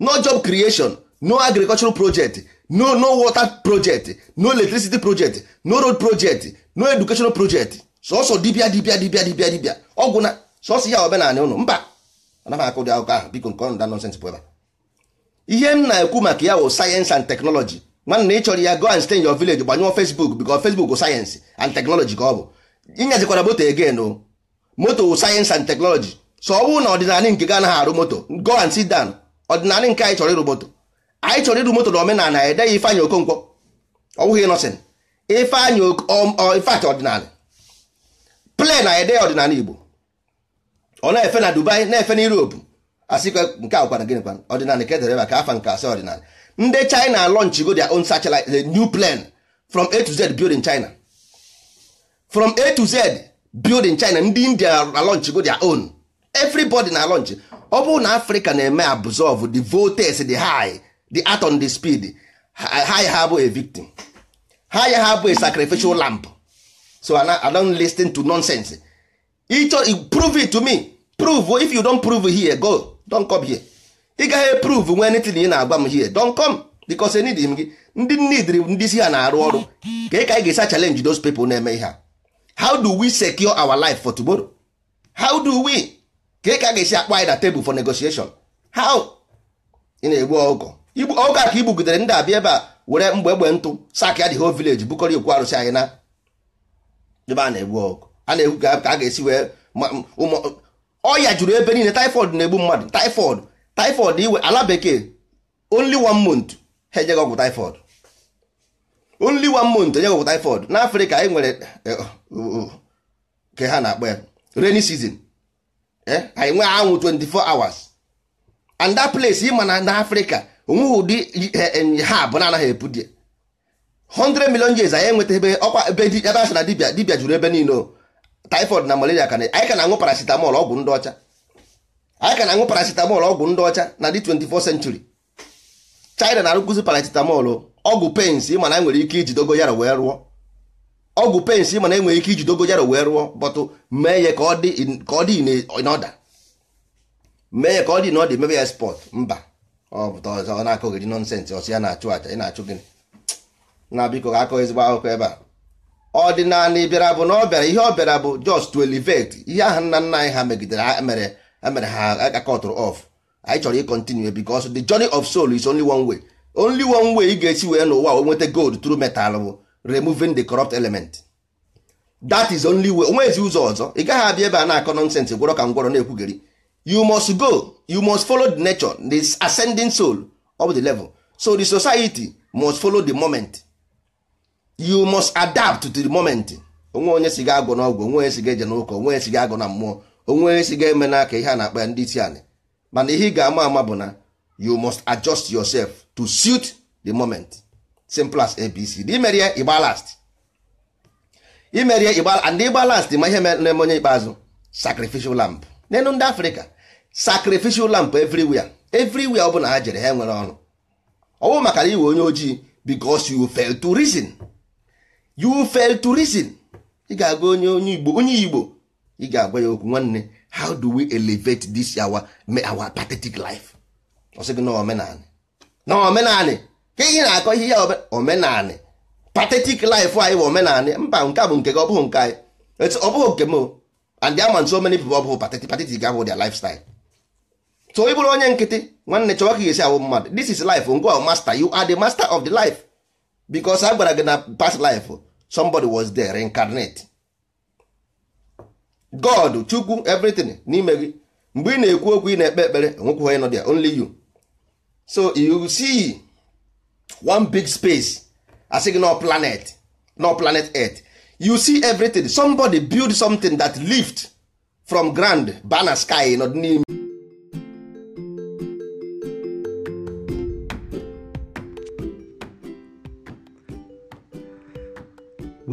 no job creation no agricultural project no no water project no electricity project no road project no educational project sọsọ dibịa dibịa dibịa dibịa dibịa ọgwụ na sọsọ ya omenala ụnụ mba anaghị akụ ụdị akụkọ ahụ biko nke ọnụ da nọnsens bụ ebe ihe m na-ekwu maka ya wụ sayensị and teknọlọji nwanne ị chọrọ ya go and stay in your village gbanyụọ Facebook because Facebook sayensị and teknọlọji ka ọ bụ ịnyazikwara moto again o moto wụ sayensị and teknọlọji so ọ bụrụ na ọdịnala nke ga anaghị arụ moto go and sit down ọdịnala nke anyị chọrọ ịrụ moto anyị chọrọ ịrụ moto na omenala ya e edeghị Ifeanyị Okonkwo ọ bụghị nọsin Ifeanyị um, uh, ọdịnala plen na ede ọdịnala Igbo ọ na-efe na Dubai na-efe na Europe kwa nke a gwara gịnị kwana ọdịnala ka edere maka afa nke asị ọdịnala ndị China go their own satellite the new plane from A to Z building in China from A to Z building in China ndị India na go their own everybody na launch ọ bụrụ na Africa na-eme absorb the voltage the high the atom the speed high ha bụ a victim high ha bụ a sacrificial lamp so I don't listen to nonsense ichọ prove it to me prove if you don prove here go don come here ị gaghị prove nwe anything ị na agwa m here don come because need m gị ndị nidiri ndị isi ha na-arụ ọrụ ka ị ka ga-esa challenge those people na-eme ihe how do we secure our life for tomorrow how do we ka ị ka ga-esi akpọ anyị na table for negotiation how ị na-egbu ọgụ igbu ọgụ a ka igbugidere ndị abịa ebe a were mgbe egbe ntụ sak ya dị ho village bukọrọ okwu arụsị anyị na ebe a na-egbu ọgụ a na-egwu ka a ga-esi wee ọya juru ebe niile typhoid na-egbu mmadụ typhoid typhoid iwe ala bekee only one month ha enyeghị ọgwụ typhoid only one month enyeghị ọgwụ typhoid n'afrịka anyị e nwere e, ka ha na-akpọ ya rainy season eh, anyị nwee anwụ 24 hours and that place ịma na n'afrịka onweghị ụdị e, ha bụ na-anaghị epu die 100 million years anyị enweta ebe ọkwa ebe ebe na dibia dibia juru ebe niile typhoid na malaria ka anyị ka na-aṅụ paracetamol ọgwụ ndị ọcha anyị ka na-aṅụ paracetamol ọgwụ ndị ọcha na dị 24 century China na-arụkụzi paracetamol ọgwụ pens ị mana enwere ike iji dogoyaro wee rụọ ọgwụ pens ị mana enwere ike iji dogoyaro wee rụọ bọtụ mee ya ka ọ dị n'ọda mee ya ka ọ dị n'ọda mebe ya spọt mba ọ pụta ọ na-akọghịrị nọnsensị ọsọ ya na-achụ aja ị na-achụ gịnị na biko ga-akọ ezigbo akụkọ ebe a ọdịnala bịara bụ na ọ bịara ihe ọ bịara bụ just to elevate ihe ahụ nna nna anyị ha megidere mere mere ha akatụrụ off anyị chọrọ ịkontinue because the journey of soul is only one way only one way ị ga-esi wee n'ụwa wee nweta gold through metal bụ removing the corrupt element that is only way ezi ụzọ ọzọ ị gaghị abịa ebe a na-akọ nonsense gwọrọ ka ngwọrọ na-ekwugheri you must go you must follow the nature the ascending soul of the level so the society must follow the moment you must adapt to the moment onwe onye si gị agụ n'ọgwụ onwe onye si gị eje n'ụka onwe onye si gị agụ na mmụọ onwe onye si gị eme n'aka ihe a na-akpa ya ndị isi anyị mana ihe ị ga-ama ama bụ na you must adjust yourself to suit the moment simple as abc imeri ya ịgba last imeri ya ịgba and ịgba last ma ihe na-eme onye ikpeazụ sacrificial lamp n'elu ndị africa sacrificial lamp everywhere everywhere ọ bụla ha jere ha nwere ọnụ. ọ bụ maka na iwe onye ojii because you fail to reason. you fail to reason ị ga-agwa onye onye igbo onye igbo ị ga-agwa ya okwu nwanne how do we elevate this our our pathetic life ọ sị na omenanị na omenanị ka ihe na-akọ ihe ya omenanị pathetic life anyị bụ omenanị mba nke bụ nke gị ọ bụghị nke anyị ọ bụghị nke m and there are so many people ọ bụghị pathetic pathetic ahụ their lifestyle so ị bụrụ onye nkịtị nwanne chọwa ka esi awụ mmadụ this is life ngwa master you are the master of the life because a gwara gị na past life somebody was there reincarnate god chukwu everything n'ime gị mgbe ị na-ekwu okwu ị na-ekpe ekpere onye nọ only you so you see one big space asị gị no planet no planet earth you see everything somebody build something that lived from ground bana sky nọ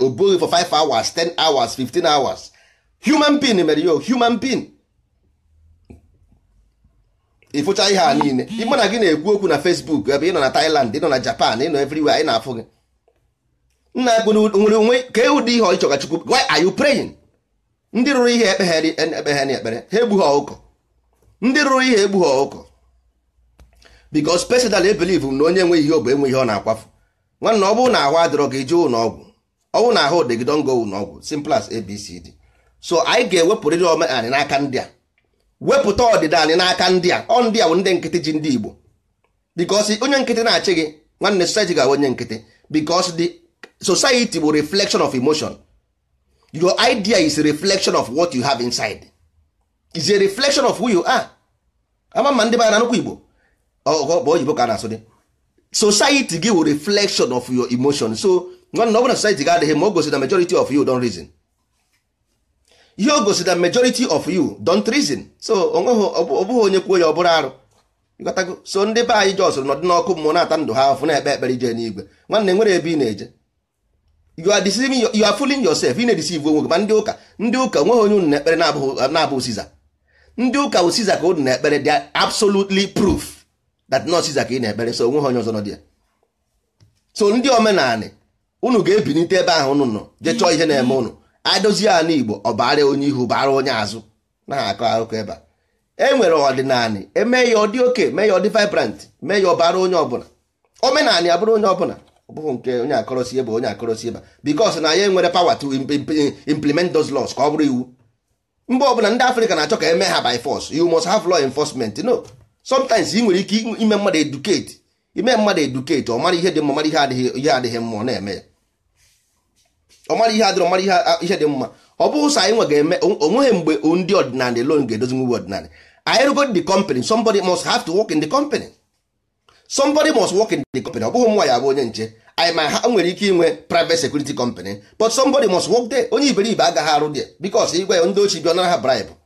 o bụghị for 5 hours 10 hours 15 hours human being mere ya human being ịfụcha ihe a niile ịma na gị na-ekwu okwu na Facebook ebe ị nọ na Thailand ị nọ na Japan ị nọ everywhere ị na-afụ gị nna ekwu nwere onwe ka ụdị ihe ọchọga Chukwu why are you praying ndị rụrụ ihe ekpegharị ekpegharị ekpere ha egbughị ọkụkọ ndị rụrụ ihe egbughị ọkụkọ because personally believe na onye nwe ihe obe enwe ihe ọ na-akwafu nwanna ọ bụrụ na ahụ adịrọ gị jee ụlọ ọgwụ ọ na ahụ dị ngo don go ụlọ ọgwụ simple abcd so anyị ga-ewepụrịrị ome anyị n'aka ndị a wepụta ọdịda anyị n'aka ndị a ọ ndị a bụ ndị nkịtị ji ndị igbo because onye nkịtị na-achị gị nwanne society ga onye nkịtị because the society bụ reflection of emotion your idea is a reflection of what you have inside is a reflection of who you are ama ma ndị mara na nnukwu igbo ọkpa oyibo ka a na-asụ dị society gị wụ reflection of your emotion so nwanna ọ na society ga adịghị ma o gosi na majority of you don't reason ihe o gosi na majority of you don't reason so ọ ọbụghị onye kwuo ya ọ bụrụ arụ so ndị be anyị jọsụrụ nọdị n'ọkụ mmụọ na-ata ndụ ha afụ na-ekpe ekpere ije n'igwe nwanne nwere ebe ị na-eje you are deceiving you are fooling yourself ị na-edeceive onwe gị ma ndị ụka ndị ụka nweghị onye unu na-ekpere na-abụghị Siza ndị ụka bụ Siza ka unu na-ekpere they are absolutely proof that nọọsụ ka ị na-ekpere so onwe ha onye ọzọ nọ dị ya so ndị omenanị unu ga-ebinite ebe ahụ unu nọ jee chọọ ihe na-eme unu adozi ala igbo ọ baara onye ihu baara onye azụ na ha akọ akụkọ ebe a e nwere ọdịnanị eme ya ọ dị oke mee ya ọ dị vibrant mee ya ọ baara onye ọbụla omenanị abụrụ onye ọbụla ọ bụghị nke onye akọrọsi ebe onye akọrọsi ebe because na ya enwere power to implement those laws ka ọ bụrụ iwu mba ọbụla ndị afrịka na-achọ ka eme ha by force you must have law enforcement no sometimes ị nwere ike ime mmadụ edukate ime mmadụ edukate ọ mara ihe dị mma mara ihe adịghị ihe adịghị mma ọ na-eme ya ọ mara ihe adịrọ mara ihe dị mma ọ bụrụ sọ anyị nwe ga-eme onweghị mgbe ndị ọdịnala alone ga-edozi nwe ọdịnala anyị rụgo the company somebody must have to work in the company somebody must work in the company ọ bụghị nwa ya bụ onye nche anyị ma ha nwere ike inwe private security company but somebody must work there onye iberibe agaghị arụ there because ya ndị ochie bi ọ nara ha bribe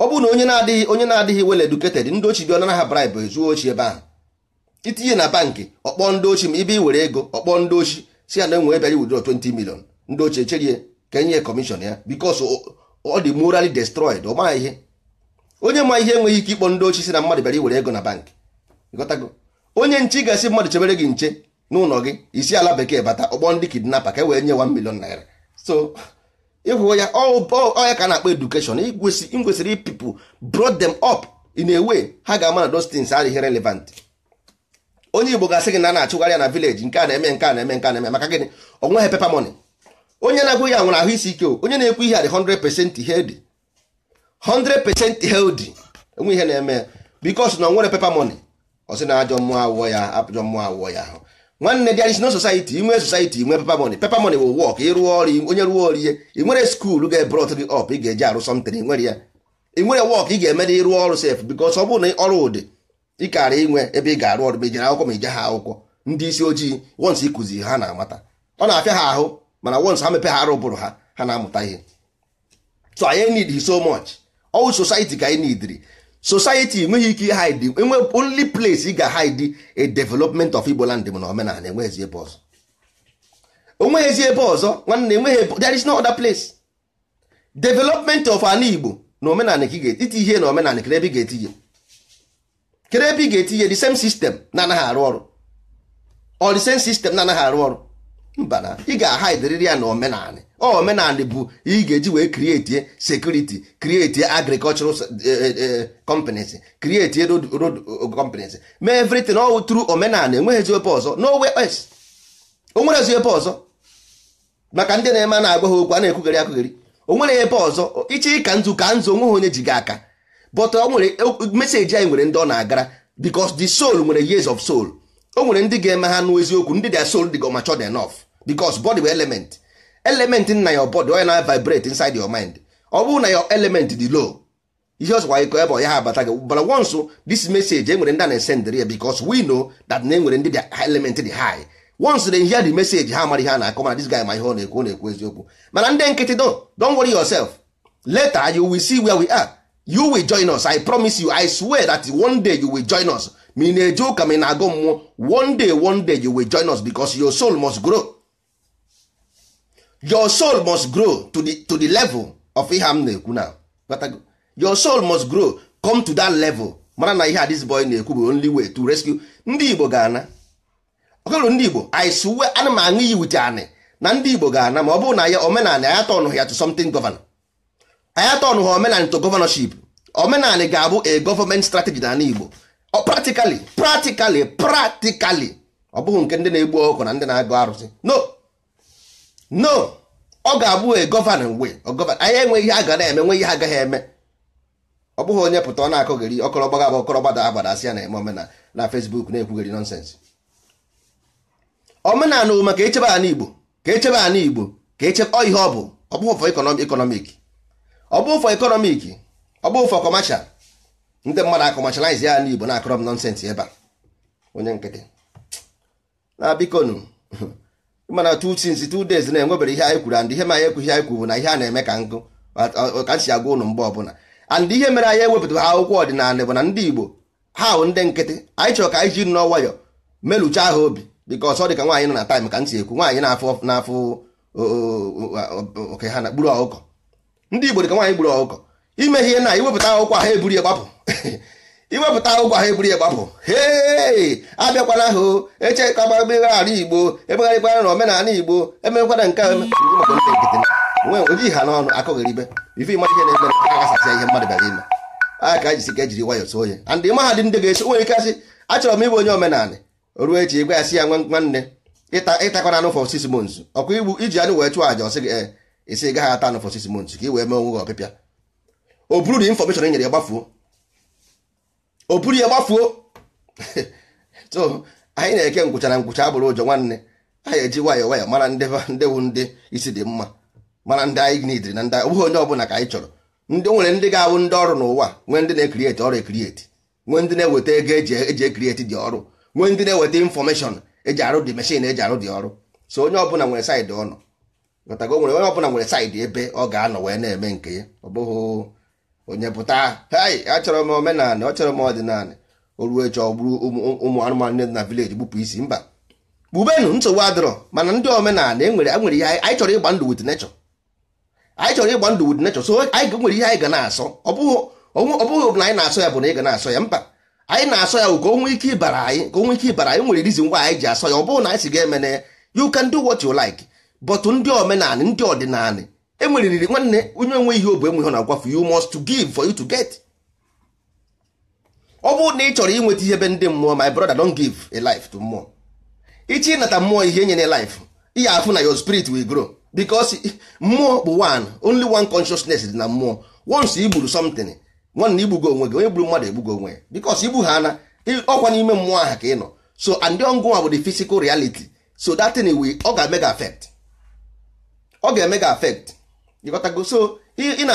ọ bụrụ na onye na-adịghị onye na-adịghị well educated ndị ochi bịa ọnanaha bribe zuo ochi ebe ahụ itinye na bankị ọkpọ ndị ochi ma ibe iwere ego ọkpọ ndị ochi si ya na enwe ebe wudro 20 million ndị ochi echerie ka enye kọmishọn ya because ọ dị destrọid destroyed ọ maghị ihe onye ma ihe enweghị ike ịkpọ ndị ochi si na mmadụ bịara iwere ego na bankị onye nche ga-asị mmadụ chebere gị nche n'ụlọ gị isi ala bekee bata ọkpọ ndị kidnapa ka e wee nye 1 million naira so ịhụ ya ọya ka na-akpọ edukeshọn ngwesịrị people brought them up in a way ha ga-ama na those things adịghị relevant onye igbo ga-asị gị na na-achụgharị ya na village nke a na-eme nke a na-eme nke a na-eme maka gịnị onweghị pepa mọni onye na-agụ ya nwere ahụ isi ike onye na-ekwu ihe a dị 100% healthy 100% healthy enwe ihe na-eme bikos na nwere pepa mọni ọ sị na ajọ mmụọ awụọ ya ajọ mmụọ awụọ ya ahụ nwanne there is no society inwe society inwe paper money paper money will work ịrụọ ọrụ onye rụọ ọrụ ihe ị nwere skuul ga-ebrot gị ọp ị ga-eji arụ something ị nwere ya ị nwere wọk ị ga-eme na ịrụọ ọrụ sef bikos ọ bụrụ na ọrụ ụdị ị inwe ebe ị ga-arụ ọrụ ma ijere akwụkwọ ma ije ha akwụkwọ ndị isi ojii wons ịkụzi ha na-amata ọ na-afịa ha ahụ mana wons ha mepe ha arụ ụbụrụ ha ha na-amụta ihe so anyị need so much ọwụ society ka anyị neediri society enweghị ike hide enwe only place ị ga-hide a development of Igbo land na omenala enweghịzi ebe ọzọ onweghịzi ebe ọzọ nwanne enweghị there is no other place development of an Igbo na omenala ka ị ga ihe na omenala kere ebe ị ga-etinye kere ebe ị ga-etinye the same system na anaghị arụ ọrụ or the same system na anaghị arụ ọrụ mbana ị ga-ahaidiriri ya na omenanị omenanị bụ ị ga-eji wee krieti sekuriti krieti agrikọlchural eh, eh, eh, companies krieti road companies mee everything ọ tụrụ omenanị enweghị ebe ọzọ n'owe es o nwere ebe ọzọ maka ndị na-eme na-agwa ha okwu a na-ekwugharị akwugheri o nwere ebe ọzọ iche ka nzu ka nzu onweghị onye ji gị aka but ọ nwere e, meseji anyị nwere ndị ọ na-agara because the soul nwere years of soul o nwere ndị ga-eme ha nụ ndị dia soul dị go mature enough because body bụ element element nna your body onye na vibrate inside your mind ọ bụrụ na your element dị low ihe ọsọkwa ịkọ ebe ọya ha abata gị bara once this message enwere eh, ndị a na-esendịrị ya because we know that na enwere ndị dị element dị high once they hear the message ha mara ha na-akọ mana this guy ma ihe eh, ọ na-ekwu ọ na-ekwu eziokwu mana ndị nkịtị do don worry yourself later you will see where we are you will join us i promise you i swear that one day you will join us ma ị na-eje ụka ma ị na-agụ mmụọ one day one day you will join us because your soul must grow your soul must grow to the, to the level of ihe m na-ekwu na your soul must grow come to that level mara na ihe a this boy na-ekwu bụ only way to rescue ndị Igbo ga-ana ọkụrụ ndị Igbo I swear ana m aṅụ iyi wit anị na ndị Igbo ga-ana ma ọ bụrụ na ya omenanị anya tọnụ ya to something governor anya tọnụ ha omenanị to governorship omenanị ga-abụ a government strategy na Igbo practically practically practically ọ bụghị nke ndị na-egbu ọkụ na ndị na-agụ arụsị no no ọ ga-abụ e gọvanọ mgbe anya enweghị ihe a ga na-eme nwe ihe agaghị eme ọ bụghị onye pụta ọ na-akọgheri ọkọrọ gbaga agba ọkọrọ asị ya na eme omenala na Facebook na-ekwugheri nọnsensị omenala maka echebe ala Igbo ka echebe ala Igbo ka echebe ọ ihe ọ bụ ọ bụghị ụfọ ekonomik ọ bụ ụfọ ekonomik ọ bụ ụfọ kọmasha ndị mmadụ akọmashalize ya n'Igbo na-akọrọ m nọnsensị ebe a onye nkịtị na bikonu mana two things two days na-enwebere ihe anyị kwuru and ihe ma anyị ekwu ihe anyị kwuru na ihe a na-eme ka nkụ ka si agwa ụnụ mgbe ọbụla and ihe mere anyị ewepụta ha akwụkwọ ọdịnala bụ na ndị Igbo ha bụ ndị nkịtị anyị chọrọ ka anyị ji nnọọ nwayọ melụcha ha obi bịka ọsọ dị ka nwaanyị nọ na taịm ka nsi ekwu nwaanyị na-afụ n'afụ oke ha na gburu ọkụkọ ndị Igbo dị ka nwaanyị gburu ọkụkọ ime ihe na iwepụta akwụkwọ ha eburu ya gbapụ iwepụta ụgwọ ahụ eburu ya gbapụ hei abịakwana ka echekaba megharị igbo emegharịkwana na omenala igbo emekwana nke oji ha n'ọnụ akụghịribe ife ịma ihe na-eme agasasịa ihe mmadụ bịara ime a ka jisi ka ejiri nwayọ soo ya and mahadum ndị ga-eso nwere ike asị achọrọ m ịbụ onye omenala ruo echi ịgwa ya sị ya nwanne ịtakwana anụ for six mons ọkwa igbu iji anụ wee chụọ àja ọsị gị esi eh, gaghị ata anụ for six months ka ị wee mee onwe gị ọpịpịa o buru na infọmeshọn e nyere ya gbafuo o buru ya gbafuo so anyị na-eke ngwụchara ngwụcha abụrụ ụjọ nwanne anyị eji nwayọ nwayọọ mara ndị wụ ndị isi dị mma mana ndị anyị nidiri na ndị ọ bụghị onye ọbụla ka anyị chọrọ ndị nwere ndị ga-awụ ndị ọrụ n'ụwa nwee ndị na-ekrieti ọrụ ekrieti nwee ndị na-eweta ego eji ekrieti dị ọrụ nwee ndị na-eweta infọmeshọn eji arụ dị meshin eji arụ dị ọrụ so onye ọbụla nwere saịdị ọnọ nwere onye ọbụla nwere saịdị ebe ọ ga-anọ wee na-eme nke ya ọ bụghị onye pụta hei achọrọ m omenala achọrọ m ọdịnala oruo eche ọgburu ụmụ anụmanụ ndị na vileji gbupụ isi mba kpubenu nsogbu adịrọ mana ndị omenala enwere e nwere ihe anyị chọrọ ịgba ndụ wit nechọ anyị chọrọ ịgba ndụ wit nechọ so anyị nwere ihe anyị ga na-asọ ọ bụghị ọ na anyị na-asọ ya bụ na ị ga na-asọ ya mba anyị na-asọ ya ka o ike ịbara anyị ka o ike ịbara anyị nwere rizin ngwa anyị ji asọ ya ọ bụghị na anyị si ga ya you can do what you like bọtụ ndị omenala ndị ọdịnala emeriri nwanne onye onwe ihe obu enweghị na-agwafe you must to give for you to get ọ bụrụ na ị chọrọ inweta ihe ebe ndị mmụọ my brother don't give a life to mmụọ ichi ịnata mmụọ ihe enyere life ihe afụ na your spirit will grow because mmụọ bụ one only one consciousness dị na mmụọ once igburu something nwanne igbugo onwe gị onye gburu mmadụ egbugo onwe ya because igbu ha na ọkwa n'ime mmụọ aha ka ị nọ so and ọngụnwa bụ the physical reality so that thing will ọ ga-eme gị affect ọ ga-eme gị affect ịghọtago so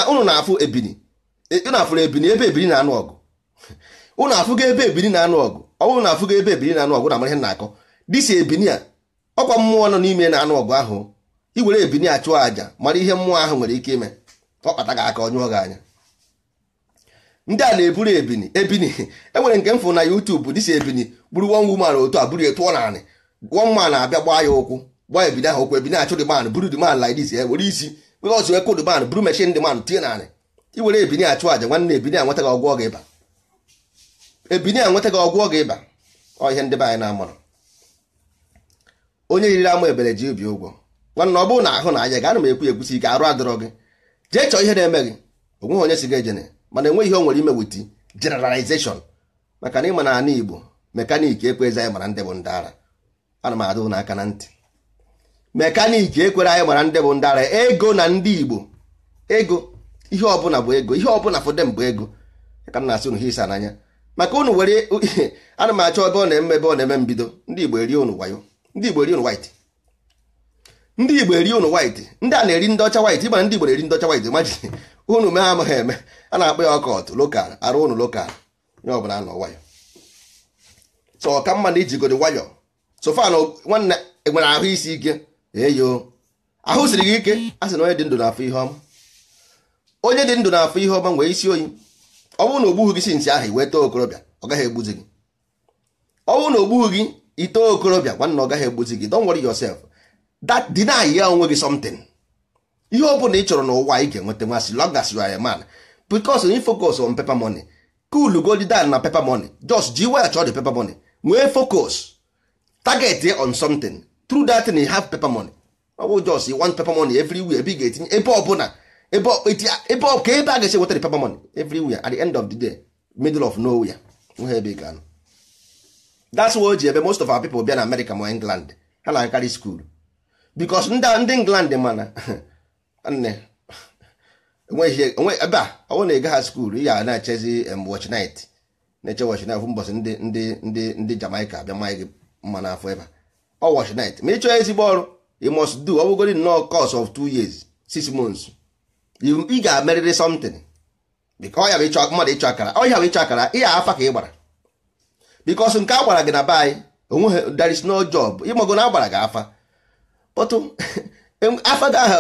ụnụ na-afụ ebini e, unu afụrụ ebini ebe ebini na-anụ ọgụ afụ ga ebe ebini na-anụ ọgụ ọnwụ na ga ebe ebini na-anụ ọgụ na mara ihe na-akọ dịsi ebini a ọkwa mmụọ nọ n'ime na-anụ ọgụ ahụ iwere ebini a chụọ àjà mara ihe mmụọ ahụ nwere ike ime ọ kpata gị aka ọnyụọ gị anya ndị a na-eburu ebini ebini e nwere nke m fụ na YouTube dịsi ebini buru one woman otu a buru etụọ naanị one na-abịa gbaa ya ụkwụ gbaa ebini ahụ ụkwụ ebini achụ dị man buru dị man like ya were isi because wee kụd man buru mechin dị man tinye narị iwere ebini achụ aja nwanne ebini a gị ọgwụ ịba ebini a gị ọgwụ ọ ga-ịba ọ ndị be anyị na-amụrụ onye yiri ama ebere ji obi ụgwọ nwanne ọ bụrụ na ahụ na anya gị ana m ekwu ekwusi ike arụ adịrọ gị jee chọọ ihe na-eme gị onweghị onye si gị ejene mana enweghị ihe o nwere ime wit maka na ịma na Igbo mekaniki ekwe ezi anyị mara ndị bụ ndị ara ana m adụ n'aka na ntị mekaniki ekwere anyị mara ndị bụ ndara ego na ndị igbo ego ihe ọbụla bụ ego ihe ọbụla fụde bụ ego ka m na-asị unu ha isa n'anya maka unu were ana m achọ ebe ọ na-eme ebe ọ na-eme mbido ndị igbo eri unu wayo ndị igbo eri unu white ndị igbo eri unu white ndị a na-eri ndị ọcha white ịgbara ndị igbo na-eri ndị ọcha white maji unu mee amaghị eme a na-akpọ ya ọkọt lokal arụ ụnụ lokal nye ọbụla nọ wayo so ọ ka mma na ijigodo nwayọ so fa nwanne enwere ahụ isi ike eyo ahụ siri gị ike a sị na onye dị ndụ na-afụ ihe ọma onye dị ndụ na-afụ ihe ọma nwee isi oyi ọ bụrụ na ogbughị gị si nsị ahụ iwee too okorobịa ọ gaghị egbuzi gị ọ bụrụ na ogbughị gị ito okorobịa nwanna ọ gaghị egbuzi gị don't worry yourself that deny ya onwe gị something ihe ọ bụla ị chọrọ n'ụwa ị ga-enweta nwa as long as you are a man because you focus on paper money cool go dị na paper money just ji wel chọọ the paper money nwee focus target on something through that you have paper money ọ bụ jos one paper money everywhere ebe ị ga-etinye ebe ọbụla ebe ka ebe a ga-esi paper money week at the end of the day middle of nowhere nwe ebe ga-anọ that's ji ebe most of our people bịa na America ma England ha na-akarị school because ndị England mana nne ebe a ọ bụrụ na ị gagha skuul ya na-echezi watch na-eche ndị ndị ndị Jamaica abịa mma gị mma n'afọ ebe a ọ washnet ma ị chọọ ezigbo ọrụ you must do ọ bụgodi nnọọ course of two years six months ị ga-amerịrị something because ya bụ ịchọ mmadụ ịchọ akara ọ ya bụ ịchọ akara ị ya afa ka ị gbara because nke a gbara gị na be anyị onweghị there is no job ịmago na agbara gị afa otu afa gị aha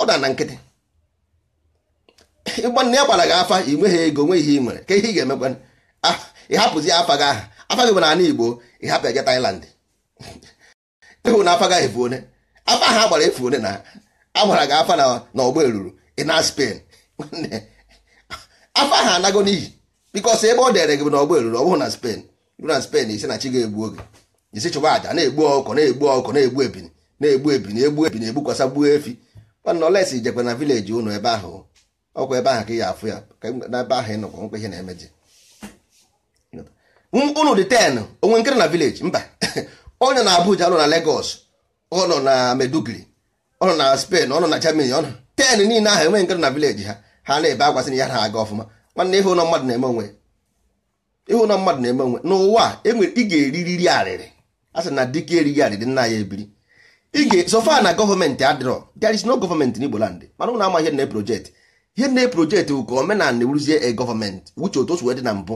ọ na na nkịtị ịgbanụ na ya gbara gị afa i nweghị ego nwe ihe ị nwere ka ihe ị ga-emekwa ị hapụzi afa gị aha afa gị bụ na Igbo ị hapụ ya ga Thailand ịhụ na afa gaghị efu one afa ha gbara efu one na agbara gị afa na ọgba eruru ịna spen afa ha anago n'iyi bikos ebe ọ dere gị na ọgba eruru ọ bụghị na Spain ruo na Spain isi na chi ga-egbu oge isi chụba aja na-egbu ọkụ na-egbu ọkụ na-egbu ebini na-egbu ebini egbu ebini egbukwasa gbuo efi mana olesi ijekwa na vileji ụnụ ebe ahụ ọkwa ebe ahụ ka ị ya afụ ya na ebe ahụ ị nọkwa nkwa ihe na-emeji ụnụ dị ten onwe nkịrị na vileji mba onye na Abuja nọ na Lagos ọ nọ na Meduguri ọ nọ na Spain ọ nọ na Germany ọ nọ ten niile ahụ enweghị nke nọ na vileji ha ha na-ebe agwasị na ya na aga ọfụma nwanne ihu mmadụ na-eme onwe ihu na mmadụ na-eme onwe n'ụwa enwere ị ga-eririri arịrị a sị na dike erighị arịrị nna ya ebiri ige ga-esofa na gọọmenti adịrọ there is no gọọmenti n'Igbo land mana ụna ama ihe na projekt ihe na projekt bụ ka omenala na-ewuruzie e gọọmenti wuche otu o si wee dị na mbụ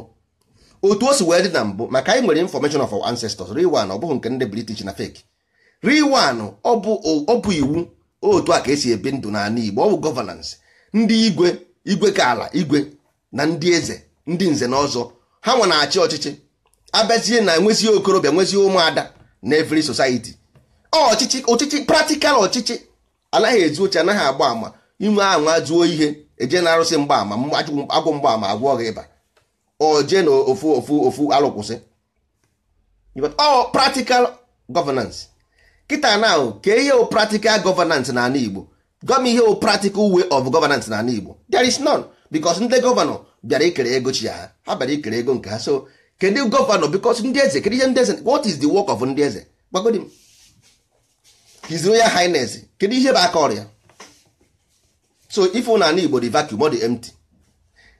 otu o si wee dị na mbụ maka anyị nwere information of ancestors real ọ bụghị nke ndị british na fake real one ọ bụ iwu otu a ka esi ebi ndụ n'ala igbo ọ bụ governance ndị igwe igwe ka ala igwe na ndị eze ndị nze na ọzọ ha nwe na-achị ọchịchị abazie na enwezie okorobịa nwezie ụmụada na every society ọchịchị ọchịchị practical ọchịchị anaghị ezu oche anaghị agba ama inwe anwa zuo ihe eje na arụsị mgbaama agwụ mgbaama agwọ ọghị ịba o jee na ofu ofu ofu alụkwụsị ọ practical governance kịta na ka ihe o practical governance na ala Igbo gọm ihe o practical way of governance na ala Igbo there is none because ndị gọvanọ bịara ikere ego chi ha ha bịara ikere ego nke ha so kedu gọvanọ because ndị eze kedu ihe ndị eze what is the work of ndị eze gbagodi his royal highness kedu ihe bụ aka ọrịa so ife na ala Igbo the vacuum ọ dị empty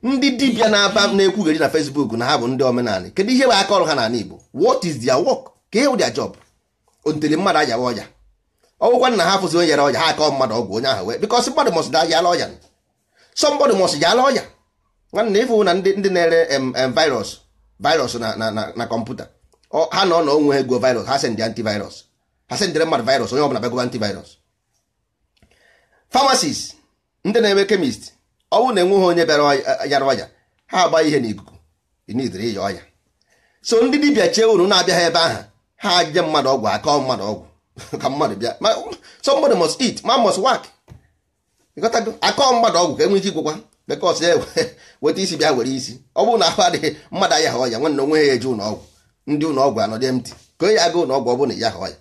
ndị dibịa na-aba na-ekwugheri na Facebook na ha bụ ndị omenala kedu ihe bụ aka ọrụ ha n'ala Igbo what is their work ka ihe bụ their job ontele mmadụ ayawa ọya ọgwụkwa na ha fụzi onye yara ha akọ mmadụ ọgwụ onye ahụ wee because mmadụ mọsị da yala ọya somebody mọsị yala ọja nwanne ịfụ na ndị na-ere virus virus na kọmputa ha na ọ na onwe ha ego virus ha sendị antivirus ha sendịre mmadụ virus onye ọbụla bagoba antivirus famasis ndị na enwe kemist ọ bụrụ na enweghị onye bịara yara ọya ha agba ihe n'ikuku ịnidiri ịya ọya so ndị dibịa chee unu na-abịaghị ebe ahụ ha jee mmadụ ọgwụ akọ mmadụ ọgwụ ka mmadụ e bịa mmadụ mọs eat man mọs work akọ mmadụ ọgwụ ka enwe ike igwụkwa bekọs ya weta isi bịa were isi ọ bụrụ na ahụ adịghị mmadụ ayaghị ọya nwanne onwe ya eje ụlọ ọgwụ ndị ụlọ ọgwụ anọdị emti ka onye agụ ụlọ ọgwụ ọ bụrụ na ya ọya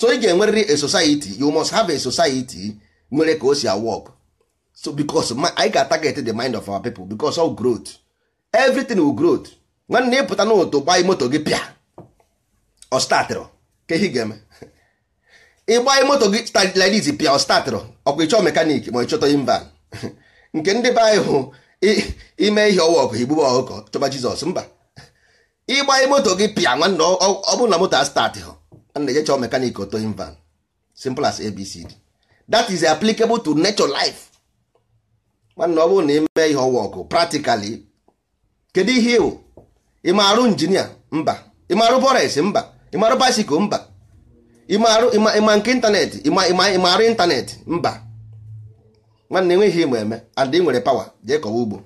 so ị ga-enwerịrị a society you must have a society nwere ka o si awọkụ so because anyị ga-ataget the mind of our people because of growth everything will growth nwanne ịpụta n'ụtụ gba moto gị pịa ọ startịrị ka ihe ga-eme ịgba moto gị stadiliz pịa ọ startịrị ọkwa ịchọ mekanik ma ịchọta imba nke ndị be anyị hụ ime ihe ọwa ọkụ igbube ọkụkọ chọba jizọs mba ịgba moto gị pịa nwanne ọ bụrụ na moto a startị hụ nwanne je chọọ mekanik oto imban simple as abcd that is applicable to nature life nwanne ọ bụrụ na ime ihe ọwa ọgụ practically kedu ihe ịwụ ịmarụ injinia mba ịmarụ bọres mba ịmarụ basikụl mba ịmarụ ịma nke ịntanetị ịmarụ ịntanetị mba nwanne enweghị ime eme and ị nwere pawa jee kọwa ugbo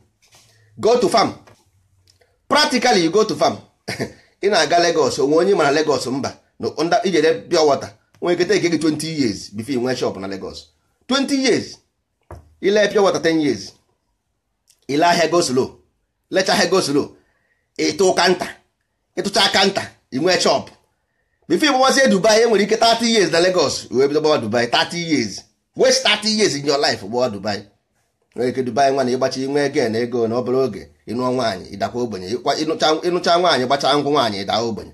go to farm practically you go to farm ị na-aga Lagos onwe onye mara Lagos mba ijere pure water nwere ekete eke gị 20 years bifo ị nwee shop na Lagos 20 years ile pure water 10 years ile ahịa go slow lecha ahịa go slow ịtụ kanta ịtụcha kanta inwe chọp bifo ịgbawazie dubai enwere ike 30 years na Lagos wee bido gbawa dubai 30 years waste 30 years in your life gbawa dubai nwere ike dubai nwa na ịgbachi inwe ego na ego na ọbụrụ oge ịnụọ nwaanyị ịdakwa ogbenye ịnụcha nwaanyị gbachaa ngwụ nwaanyị ịda ogbenye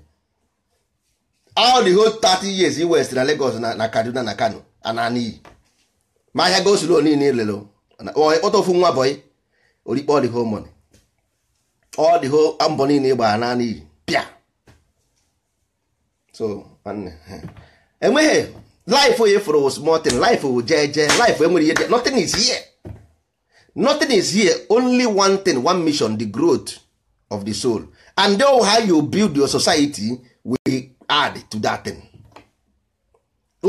all the whole 30 years i west na Lagos na kaduna na kano ananiyi ma ahịa o niile funwa boi ofu nwa bọyị orikpe ọdịho mọni ọdịho mbọ niile ịgbara naanị iyi pịa so enweghị life onye fụrụ was e nothing life wụ jee laif life enwere ihe notin is here notin is here only one tin one mission the growth of the soul and how you build your society will add to that thing.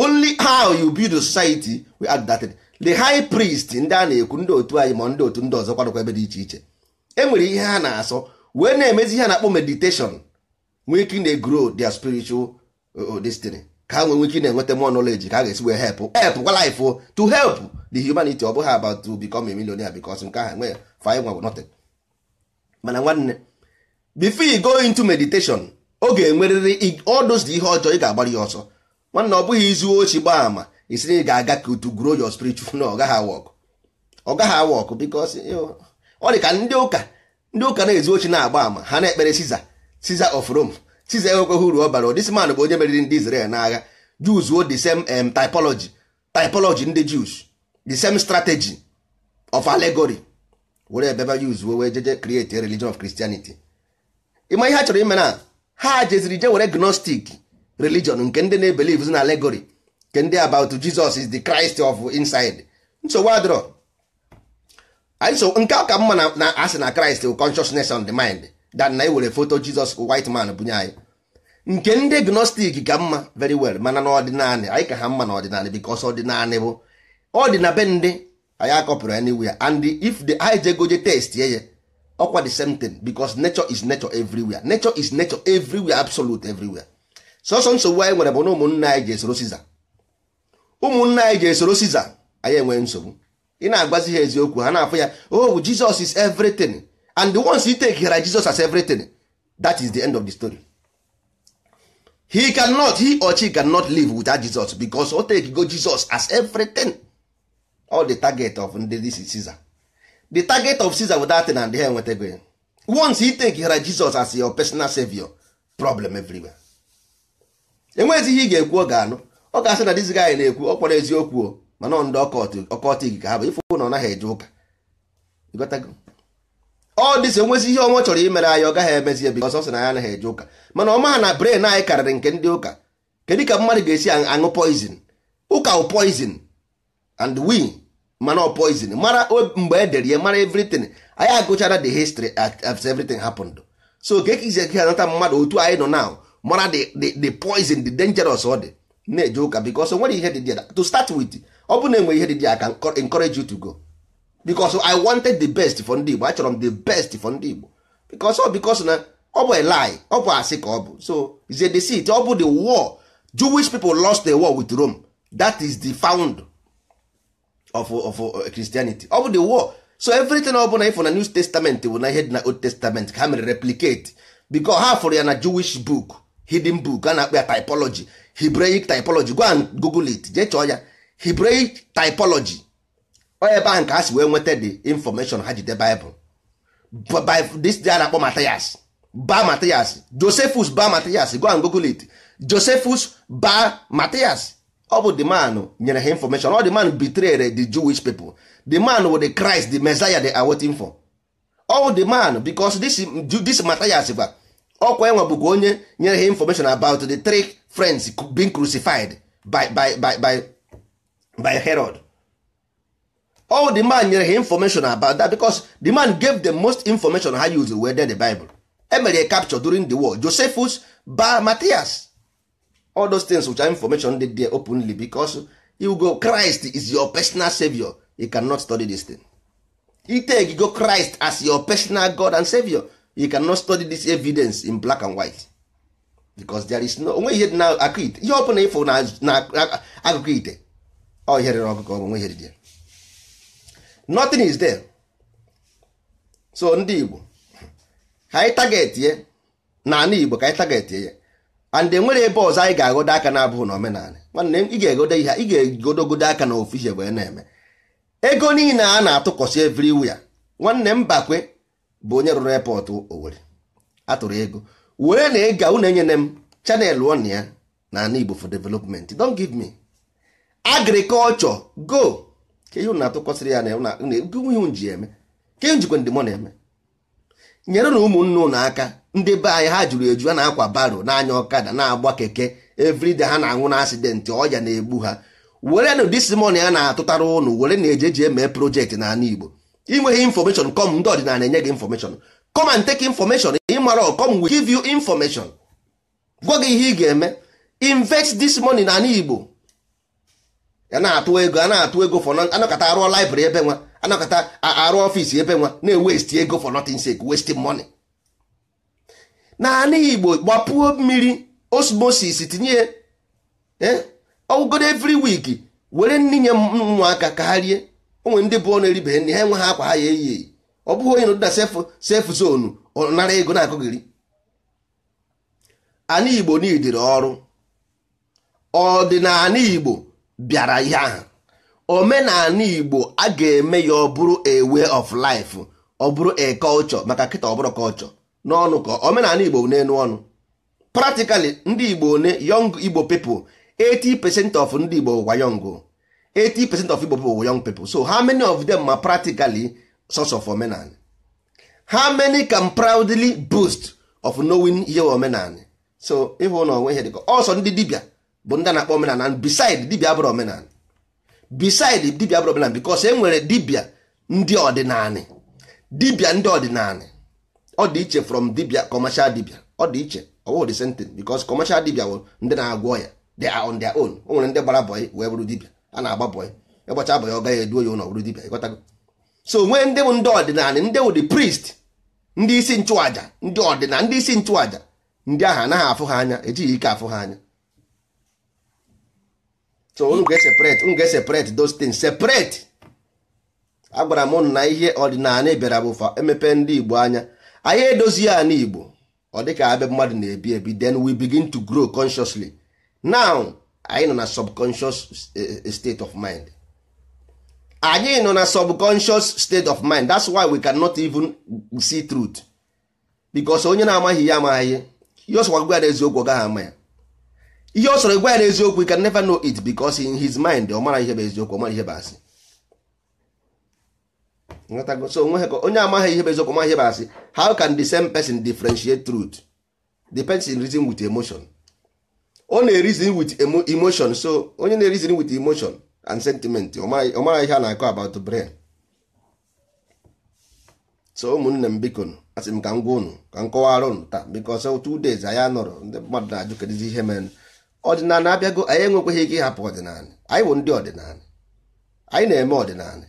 only how you build a society we add that the high priest ndị a na-ekwu ndị otu anyị ma ndị otu ndị ọzọ kwadokwa ebe dị iche iche e nwere ihe ha na-asọ wee na-emezi ihe na-akpọ meditation nwee ike na-egro their spiritual uh, uh, destiny ka ha nwee nwee ike na-enweta more knowledge ka a ga-esi wee help help kwa life oh, to help the humanity ọ bụghị about to become a millionaire because nke ahụ nwee five nwa nothing mana nwanne before you go into meditation ọ ga-enwerịrị all those ihe ọjọọ ị ga-agbara ya ọsọ nwanne ọ bụghị izu ochi gbaa ama isi na ị ga-aga ka to grow your spiritual na ọ gaghị awọkụ work gaghị because ọ dị ka ndị ụka ndị ụka na-ezu ochi na-agba ama ha na-ekpere Caesar Caesar of Rome Caesar enwekweghị uru ọ bara this man bụ onye meriri ndị Israel n'agha Jews wo the same um, typology typology ndị Jews the same strategy of allegory were ebeba Jews wee jeje create a religion of Christianity ịma ihe ha chọrọ ime na ha jeziri je were gnostic religion nke ndị na-ebelive na allegory nke ndị about Jesus is the Christ of inside nsogbu adịrọ anyị so nke a ka mma na asị na Christ bụ consciousness on the mind dan na ewere foto Jesus white man bunye anyị nke ndị gnostic ka mma very well mana na ọdịnanị anyị ka ha mma na ọdịnanị bikos ọdịnanị bụ ọdịna be ndị anyị akọpụrụ anywhere and if the anyị jegoje test ye ya ọkwa the same thing because nature is nature everywhere nature is nature everywhere absolute everywhere sọsọ nsogbu anyị nwere bụ na ụmụnna anyị ji esoro siza ụmụnna anyị ji esoro siza anyị enwee nsogbu ị na-agbazi ha eziokwu ha na-afụ ya oh Jesus is everything and once you take hera Jesus as everything that is the end of the story he cannot he or she cannot live without Jesus because o take go Jesus as everything all the target of ndị this is Caesar the target of Caesar without na ndị ha enwetago ya once you take hera Jesus as your personal savior problem everywhere enweghịzi ihe ị ga-ekwu ọ ga-anụ ọ ga-asị na dizi gaanyị na-ekwu ọ kpọrọ eziokwu o mana ndị ọkọtị gị ka ha bụ ifụ na ọ naghị eje ụka ọ dịsị enwezi ihe ọnwa chọrọ imere anyị ọ gaghị emezi ebi ọsọ sị na ya anaghị eje ụka mana ọ maha na bren anyị karịrị nke ndị ụka kedu ka mmadụ ga-esi aṅụ poizin ụka wụ poizin and we mana ọ poizin mara mgbe edere ya mara evritin anyị agụchara the history of everything happened so ka ekizi eke anata mmadụ otu anyị nọ now mara the poison the dangerous ọ dị na-eje ụka because o nwere ihe dị dị to start with ọ bụ na enwe ihe dị dị aka encourage you to go because I wanted the best for ndị Igbo achọrọ m the best for ndị Igbo because ọ oh, because na ọ bụ a lie ọ bụ asị ka ọ bụ so is a deceit ọ bụ the war Jewish people lost the war with Rome that is the found of, of uh, Christianity ọ bụ the war so everything ọ bụla ịfụ na New Testament bụ na ihe dị na Old Testament ka ha mere replicate because ha fụrụ ya na Jewish book hidden book a na-akpọ ya typology Hebraic typology go and google it jee chọọ ya Hebraic typology ọ ebe ahụ ka a si wee nweta the information ha jide Bible by this day a na-akpọ Matthias ba Matthias Josephus ba Matthias go and google it Josephus ba Matthias ọ bụ the man nyere ha information ọ the man betrayed the Jewish people the man wo the Christ the Messiah dey awaiting for all the man becos this this Matthias gwa ọkwa enwe bụkwa onye nyere ha information about the three friends being crucified by by by by by Herod all the man nyere ha information about that because the man gave the most information ha use were there the Bible emere capture during the war Josephus ba Matthias all those things which are information dey there openly because you go Christ is your personal savior you cannot study this thing ite go Christ as your personal God and savior you cannot study this evidence in black and white because there is no onwe ihe dị na akụ ite ihe ọbụla ịfụ na akụkọ ite ọ ihe rere ọkụkọ onwe ihe dị ya nothing is there so ndị Igbo ka anyị target ye na ana Igbo ka anyị target ye and enwere ebe ọzọ anyị ga-agodo aka na-abụghị na omenala nwanne ị ga-egodo ihe ị ga-egodogodo aka na ofu ihe wee na-eme ego niile a na-atụkọsị wia. nwanne m bakwe bụ onye rụrụ epọtụ Owerri atụrụ ego were na ịga unu enyere m chanel on ya na ana Igbo for development don give me agriculture go ka ihe unu atụkwasịrị ya na ihe ji eme ka ihe njikwa ndị na-eme nyere na ụmụnne unu aka ndị be anyị ha jụrụ eju a na-akwa baro na-anya ọkada na-agba keke everyday ha na-anwụ na asidentị ọya na-egbu ha were na disimon a na-atụtara ụnụ were na eje ejeji eme projekti na ana Igbo inweghị information kọm ndị ọdịnala enye gị information kọm and take information ịmara come we give you information gwa gị ihe ị ga-eme invest this money na ala Igbo ya na-atụ ego a na-atụ ego for anakọta arụọ library ebe nwa anakọta arụ ọfịs ebe nwa na-ewesti ego for nothing sake wasting money na ala Igbo gbapuo mmiri osmosis tinye eh, ọwụgodo every week were nninye ụmụaka ka ha rie onwe ndị bụ ọnụ eribeghị nri ha enweghị akwa ha ya eyi eyi ọ bụghị onye nọdụda sef zonu ọ nara ego na-akụghịrị ana igbo n'idiri ọrụ ọdịnala igbo bịara ihe ahụ omenala igbo a ga-eme ya ọ bụrụ a way of life ọ bụrụ a culture maka kịta ọ bụrụ culture n'ọnụ ka omenala igbo n'elu ọnụ pratikali ndị igbo ne yong igbo people 80 pecent of ndị igbo gwa yongo 80 percent of Igbo people were young people so how many of them are practically source of omenani how many can proudly boost of knowing ihe omenani so ịhụ na onwe ihe dịka ọsọ ndị dibia bụ ndị na-akpọ omenani and beside dibia abụrụ omenani beside dibia abụrụ omenani because e nwere dibia ndị ọdịnanị dibia ndị ọdịnanị ọ dị iche from dibia commercial dibia ọ dị iche ọwụghị the same thing because commercial dibia bụ ndị na-agwọ ya they are on their own o nwere ndị gbara bọyị wee bụrụ dibia a na agba ya ịgbacha abụ ya ọ gaghị eduo ya ụlọ bụrụ dibịa ịghọtago so nwee ndị bụ ndị ọdịnala ndị wụ the priest ndị isi nchụaja ndị ọdịnala ndị isi nchụaja ndị ahụ anaghị afụ ha anya ejighị ike afụ ha anya so unu ga-eseparate unu ga-eseparate those things separate agwara m na ihe ọdịnala bịara bụ emepe ndị igbo anya anyị edozi ya n'igbo ọ dịka abịa mmadụ na-ebi ebi then we begin to grow consciously now anyị nọ na subconscious eh, eh, state of mind anyị nọ na subconscious state of mind that's why we cannot even see truth because onye na-amaghị ya amaghị ihe ihe ọsọ gwa ya eziokwu ọ gaghị ama ya ihe ọ gwa ya eziokwu you can never know it because in his mind ọ mara ihe bụ eziokwu ọ mara ihe bụ asị so onye amaghị ihe bụ eziokwu ọ mara ihe bụ asị how can the same person differentiate truth depends in reason with emotion ọ na-erizin with emotion so onye na-erizin with emotion and sentiment ọ mara ihe a na-akọ about brain so ụmụnne m biko asị m ka m gwa unu ka m kọwara ụnụ taa because two days anyị anọrọ ndị mmadụ na-ajụ kedụzi ihe mere ọdịnala abịago anyị enwekweghị ike ịhapụ ọdịnala anyị bụ ndị ọdịnala anyị na-eme ọdịnala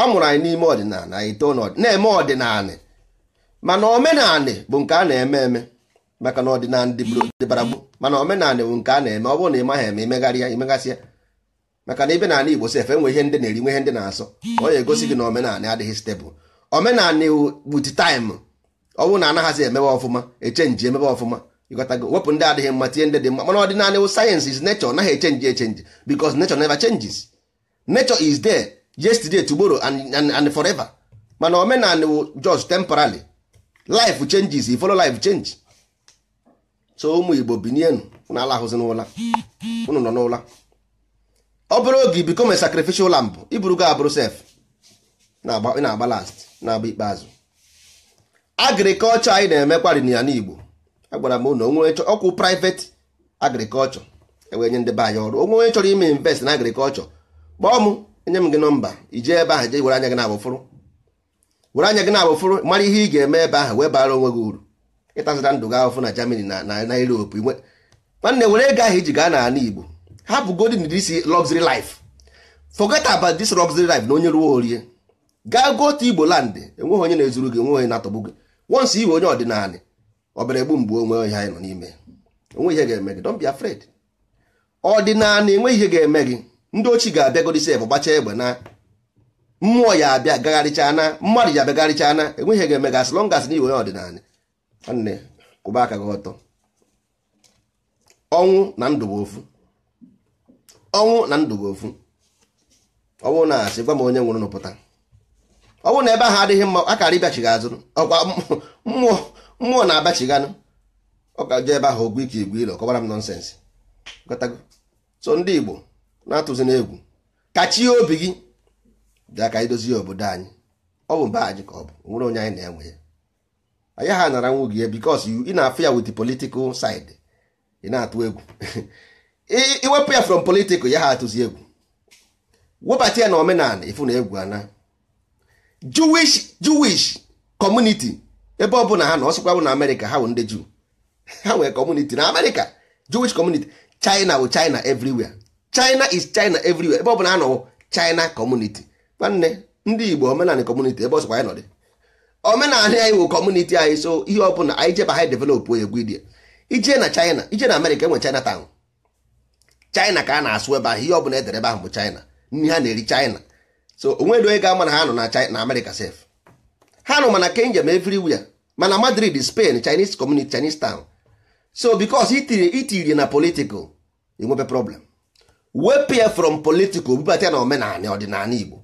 a mụrụ anyị n'ime ọdịnala anyị too na-eme ọdịnala mana omenala bụ nke a na-eme eme maka na ọdịnala ndị dịbara gbu mana omenala ewu nke a na-eme ọ bụrụ na ị maghị eme imegharịa imegasịa maka na ibe n'ala Igbo sef enwe ihe ndị na-eri nwe ndị na-asọ ọ ga-egosi gị na omenala adịghị stebụl omenala iwu gbuti taịmụ ọ bụrụ na anaghịzi emebe ọfụma echenji emebe ọfụma ịghọtago wepụ ndị adịghị mma tie ndị dị mma mana ọdịnala iwu sayensị is nechọ naghị echenji echenji because nechọ never changes nechọ is there yesterday tomorrow and, and, forever mana omenala iwu just temporarily life changes you follow life so ụmụ igbo binienu na ala ahụzi n'ụla unu nọ n'ụla ọ bụrụ oge ibiko me sacrificial mbụ iburu ga abụrụ sef na-agba last na-agba ikpeazụ agrikọlchọ anyị na-emekwarị na ya n'igbo agwara m ụlọ onwe ọkwụ private agrikọlchọ ewee nye ndị be anyị ọrụ onwe onye chọrọ ime invest na agrikọlchọ kpọọ m enye m gị nọmba ije ebe ahụ je were anya gị na abụfụrụ were anya gị na abụfụrụ mara ihe ị ga-eme ebe ahụ wee bara onwe gị uru ịtazịra ndụ gị ahụfụ na Germany na na Europe nwanne were ego ahụ iji e gaa n'ala Igbo bụ godin this luxury life forget about this luxury life na onye ruo orie gaa gotu Igbo land enweghị onye na-ezuru gị enweghị onye na-atọgbu gị once iwe onye ọdịnala ọbara egbu mgbe onwe onye anyị nọ n'ime onwe ihe ga-eme gị don't be ọdịnala enwe ihe ga-eme gị ndị ochi ga-abịagodisi ebe gbachaa egbe na mmụọ ya abịa gagharịchaa na mmadụ ya abịagharịchaa na enwe ihe ga-eme gị as na iwe onye ọdịnala nwanne kwụba aka gị ọtọ ọnwụ na ndụ bụ ofu ọnwụ na ndụ bụ ofu ọnwụ na-asị gwa m onye nwụrụ n'ụpụta ọnwụ na ebe ahụ adịghị mma akara karị bịachighị azụ ọkwa mmụọ mmụọ na-abachiganụ ọ ga jee ebe ahụ ogwu ike igwe ilo kọbara m nọnsensị gotago so ndị Igbo na-atụzi n'egwu kachie obi gị bịa ka anyị dozie obodo anyị ọ bụ mba anyị ka ọ bụ nwere onye anyị na-enwe ya anyị ha naranwu gị because ị na-afụ ya with the political side ị na-atụ egwu iwepụ ya from political ya ha atụzi egwu webata ya na omenala ifu na egwu ana Jewish Jewish community ebe ọ bụla ha na ọsịkwa bụ na Amerịka ha bụ ndị Jew ha nwere community na Amerịka Jewish community China wụ China evriwia China is China evriwia ebe ọ bụla ha nọ China community nwanne ndị Igbo omenala community ebe ọsịkwa ya nọ dị omenala anyị wụ kọmuniti anyị so ihe ọbụla anyị jeba ha developụ egwu idie ije na china ije na amerịka enwe china town china ka a na-asụ ebe ahụ ihe ọbụla edere ebe ahụ bụ china nri ha na-eri china so onwedo onye ga-ama na ha nọ na china amerịka sef ha nụ mana kenjem everywhere mana madrid spain chinese community chinese town so because itiri na political enwebe problem wepụ from political bubata na omenala ọdịnala igbo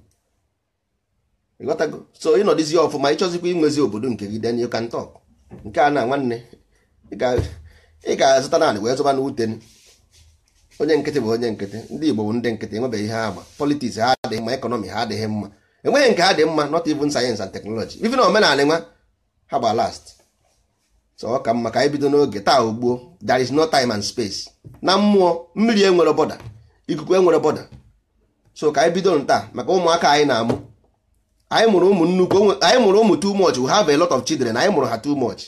ịghọtago so ịnọdịzi ọfụma ịchọzikwa inwezi obodo nke gị then you can nke a na nwanne ị ga-azụta naanị wee zụba n'ute onye nkịtị bụ onye nkịtị ndị Igbo bụ ndị nkịtị enwebeghị ihe agba politiks ha adịghị mma ekọnọmi ha adịghị mma enweghị nke ha dị mma not even sayensị and teknọlọji even omenala nwa ha gba last so ọ ka mma ka anyị bido n'oge taa ugbuo there is no time and space na mmụọ mmiri enwere bọda ikuku enwere bọda so ka anyị bido taa maka ụmụaka anyị na-amụ anyị mụrụ ụmụ nnukwu anyị mụrụ ụmụ too much we have a lot of children anyị mụrụ ha too much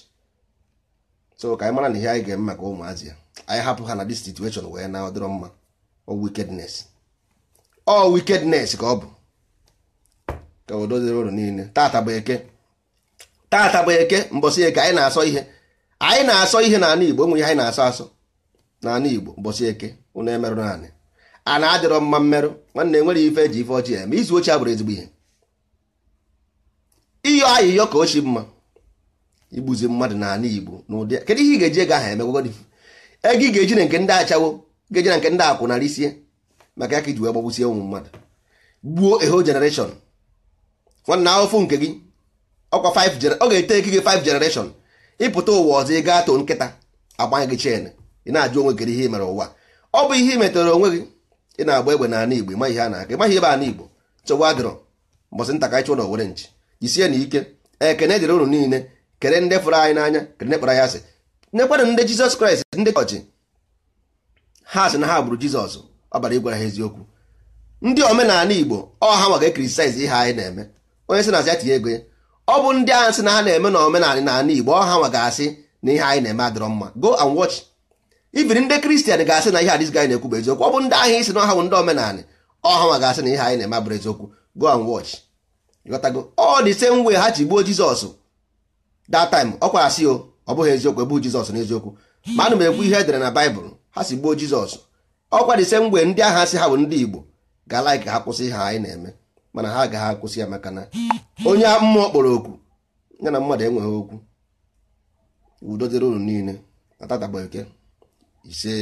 so ka anyị mara na ihe anyị ga-eme maka ụmụazị ya anyị hapụ ha na dis situation wee na ọdịrọ mma ọ wickedness ọ wickedness ka ọ bụ ka o doziri ụlọ niile tata bụ eke tata bụ eke mbọsị eke anyị na-asọ ihe anyị na-asọ ihe n'ala Igbo enwere ihe anyị na-asọ asọ n'ala Igbo mbọsị eke ụnụ emerụ naanị a na-adịrọ mma mmerụ nwanne enwere ife eji ife ọchị ya ma izu ochie abụrụ ezigbo ihe ịyọ ayịyọ ka ochi mma igbuzi mmadụ n'ala igbo n'ụdị kedu ihe ị ga-eji ego ahụ emegwagodi ego ị ga-eji na nke ndị achawo ga-eji na nke ndị akwụ akwụnarị sie maka ya ka iji wee gbagbusie ụmụ mmadụ gbuo eho generation nwanne ahụfụ nke gị ọkwa 5 ọ ga-ete eke gị 5 generation ịpụta ụwa ọzọ ịga gaa too nkịta agbanye gị chen ị na-ajụ onwe gị ihe mere ụwa ọ bụ ihe ị metere onwe gị ị na-agba egbe n'ala igbo ịma ihe a na-aga ịmaghị ebe ala igbo chọwa adịrọ mbọsị ntakịrị chụrụ na owere nchi jisie na ike ekene dịrị unu niile kere ndị fụrụ anyị n'anya kere ndị kpọrọ ya asị nekwanụ ndị jizọs kraịst ndị chọọchị ha sị na ha gburu jizọs ọ bara ịgwara ha eziokwu ndị omenala igbo ọ ha nwaga kritisaiz ihe anyị na-eme onye sị na asị ya tinye ego ya ọ bụ ndị ahụ sị na ha na-eme na omenala n'ala igbo ọ ha nwa asị na ihe anyị na-eme adịrọ mma go and watch ibiri ndị kristian ga-asị na ihe adịzi anyị na-ekwu bụ eziokwu ọ bụ ndị ahụ isi na ọha bụ ndị omenala ọ ha asị na ihe anyị na-eme abụrụ eziokwu go and watch ịghọtago ọ dị same way ha ji gbuo jizọs that time ọ kwara sị o ọ bụghị eziokwu ebu jizọs n'eziokwu ma ana m ekwu ihe edere na baịbụl ha si gbuo jizọs ọkwa dị same way ndị agha si ha bụ ndị igbo ga-ala ka ha kwụsị ha anyị na-eme mana ha agaghị akwụsị ya maka na onye mmụọ kpọrọ okwu ya na mmadụ enweghị okwu udo dịrị unu niile na tata bụ eke ise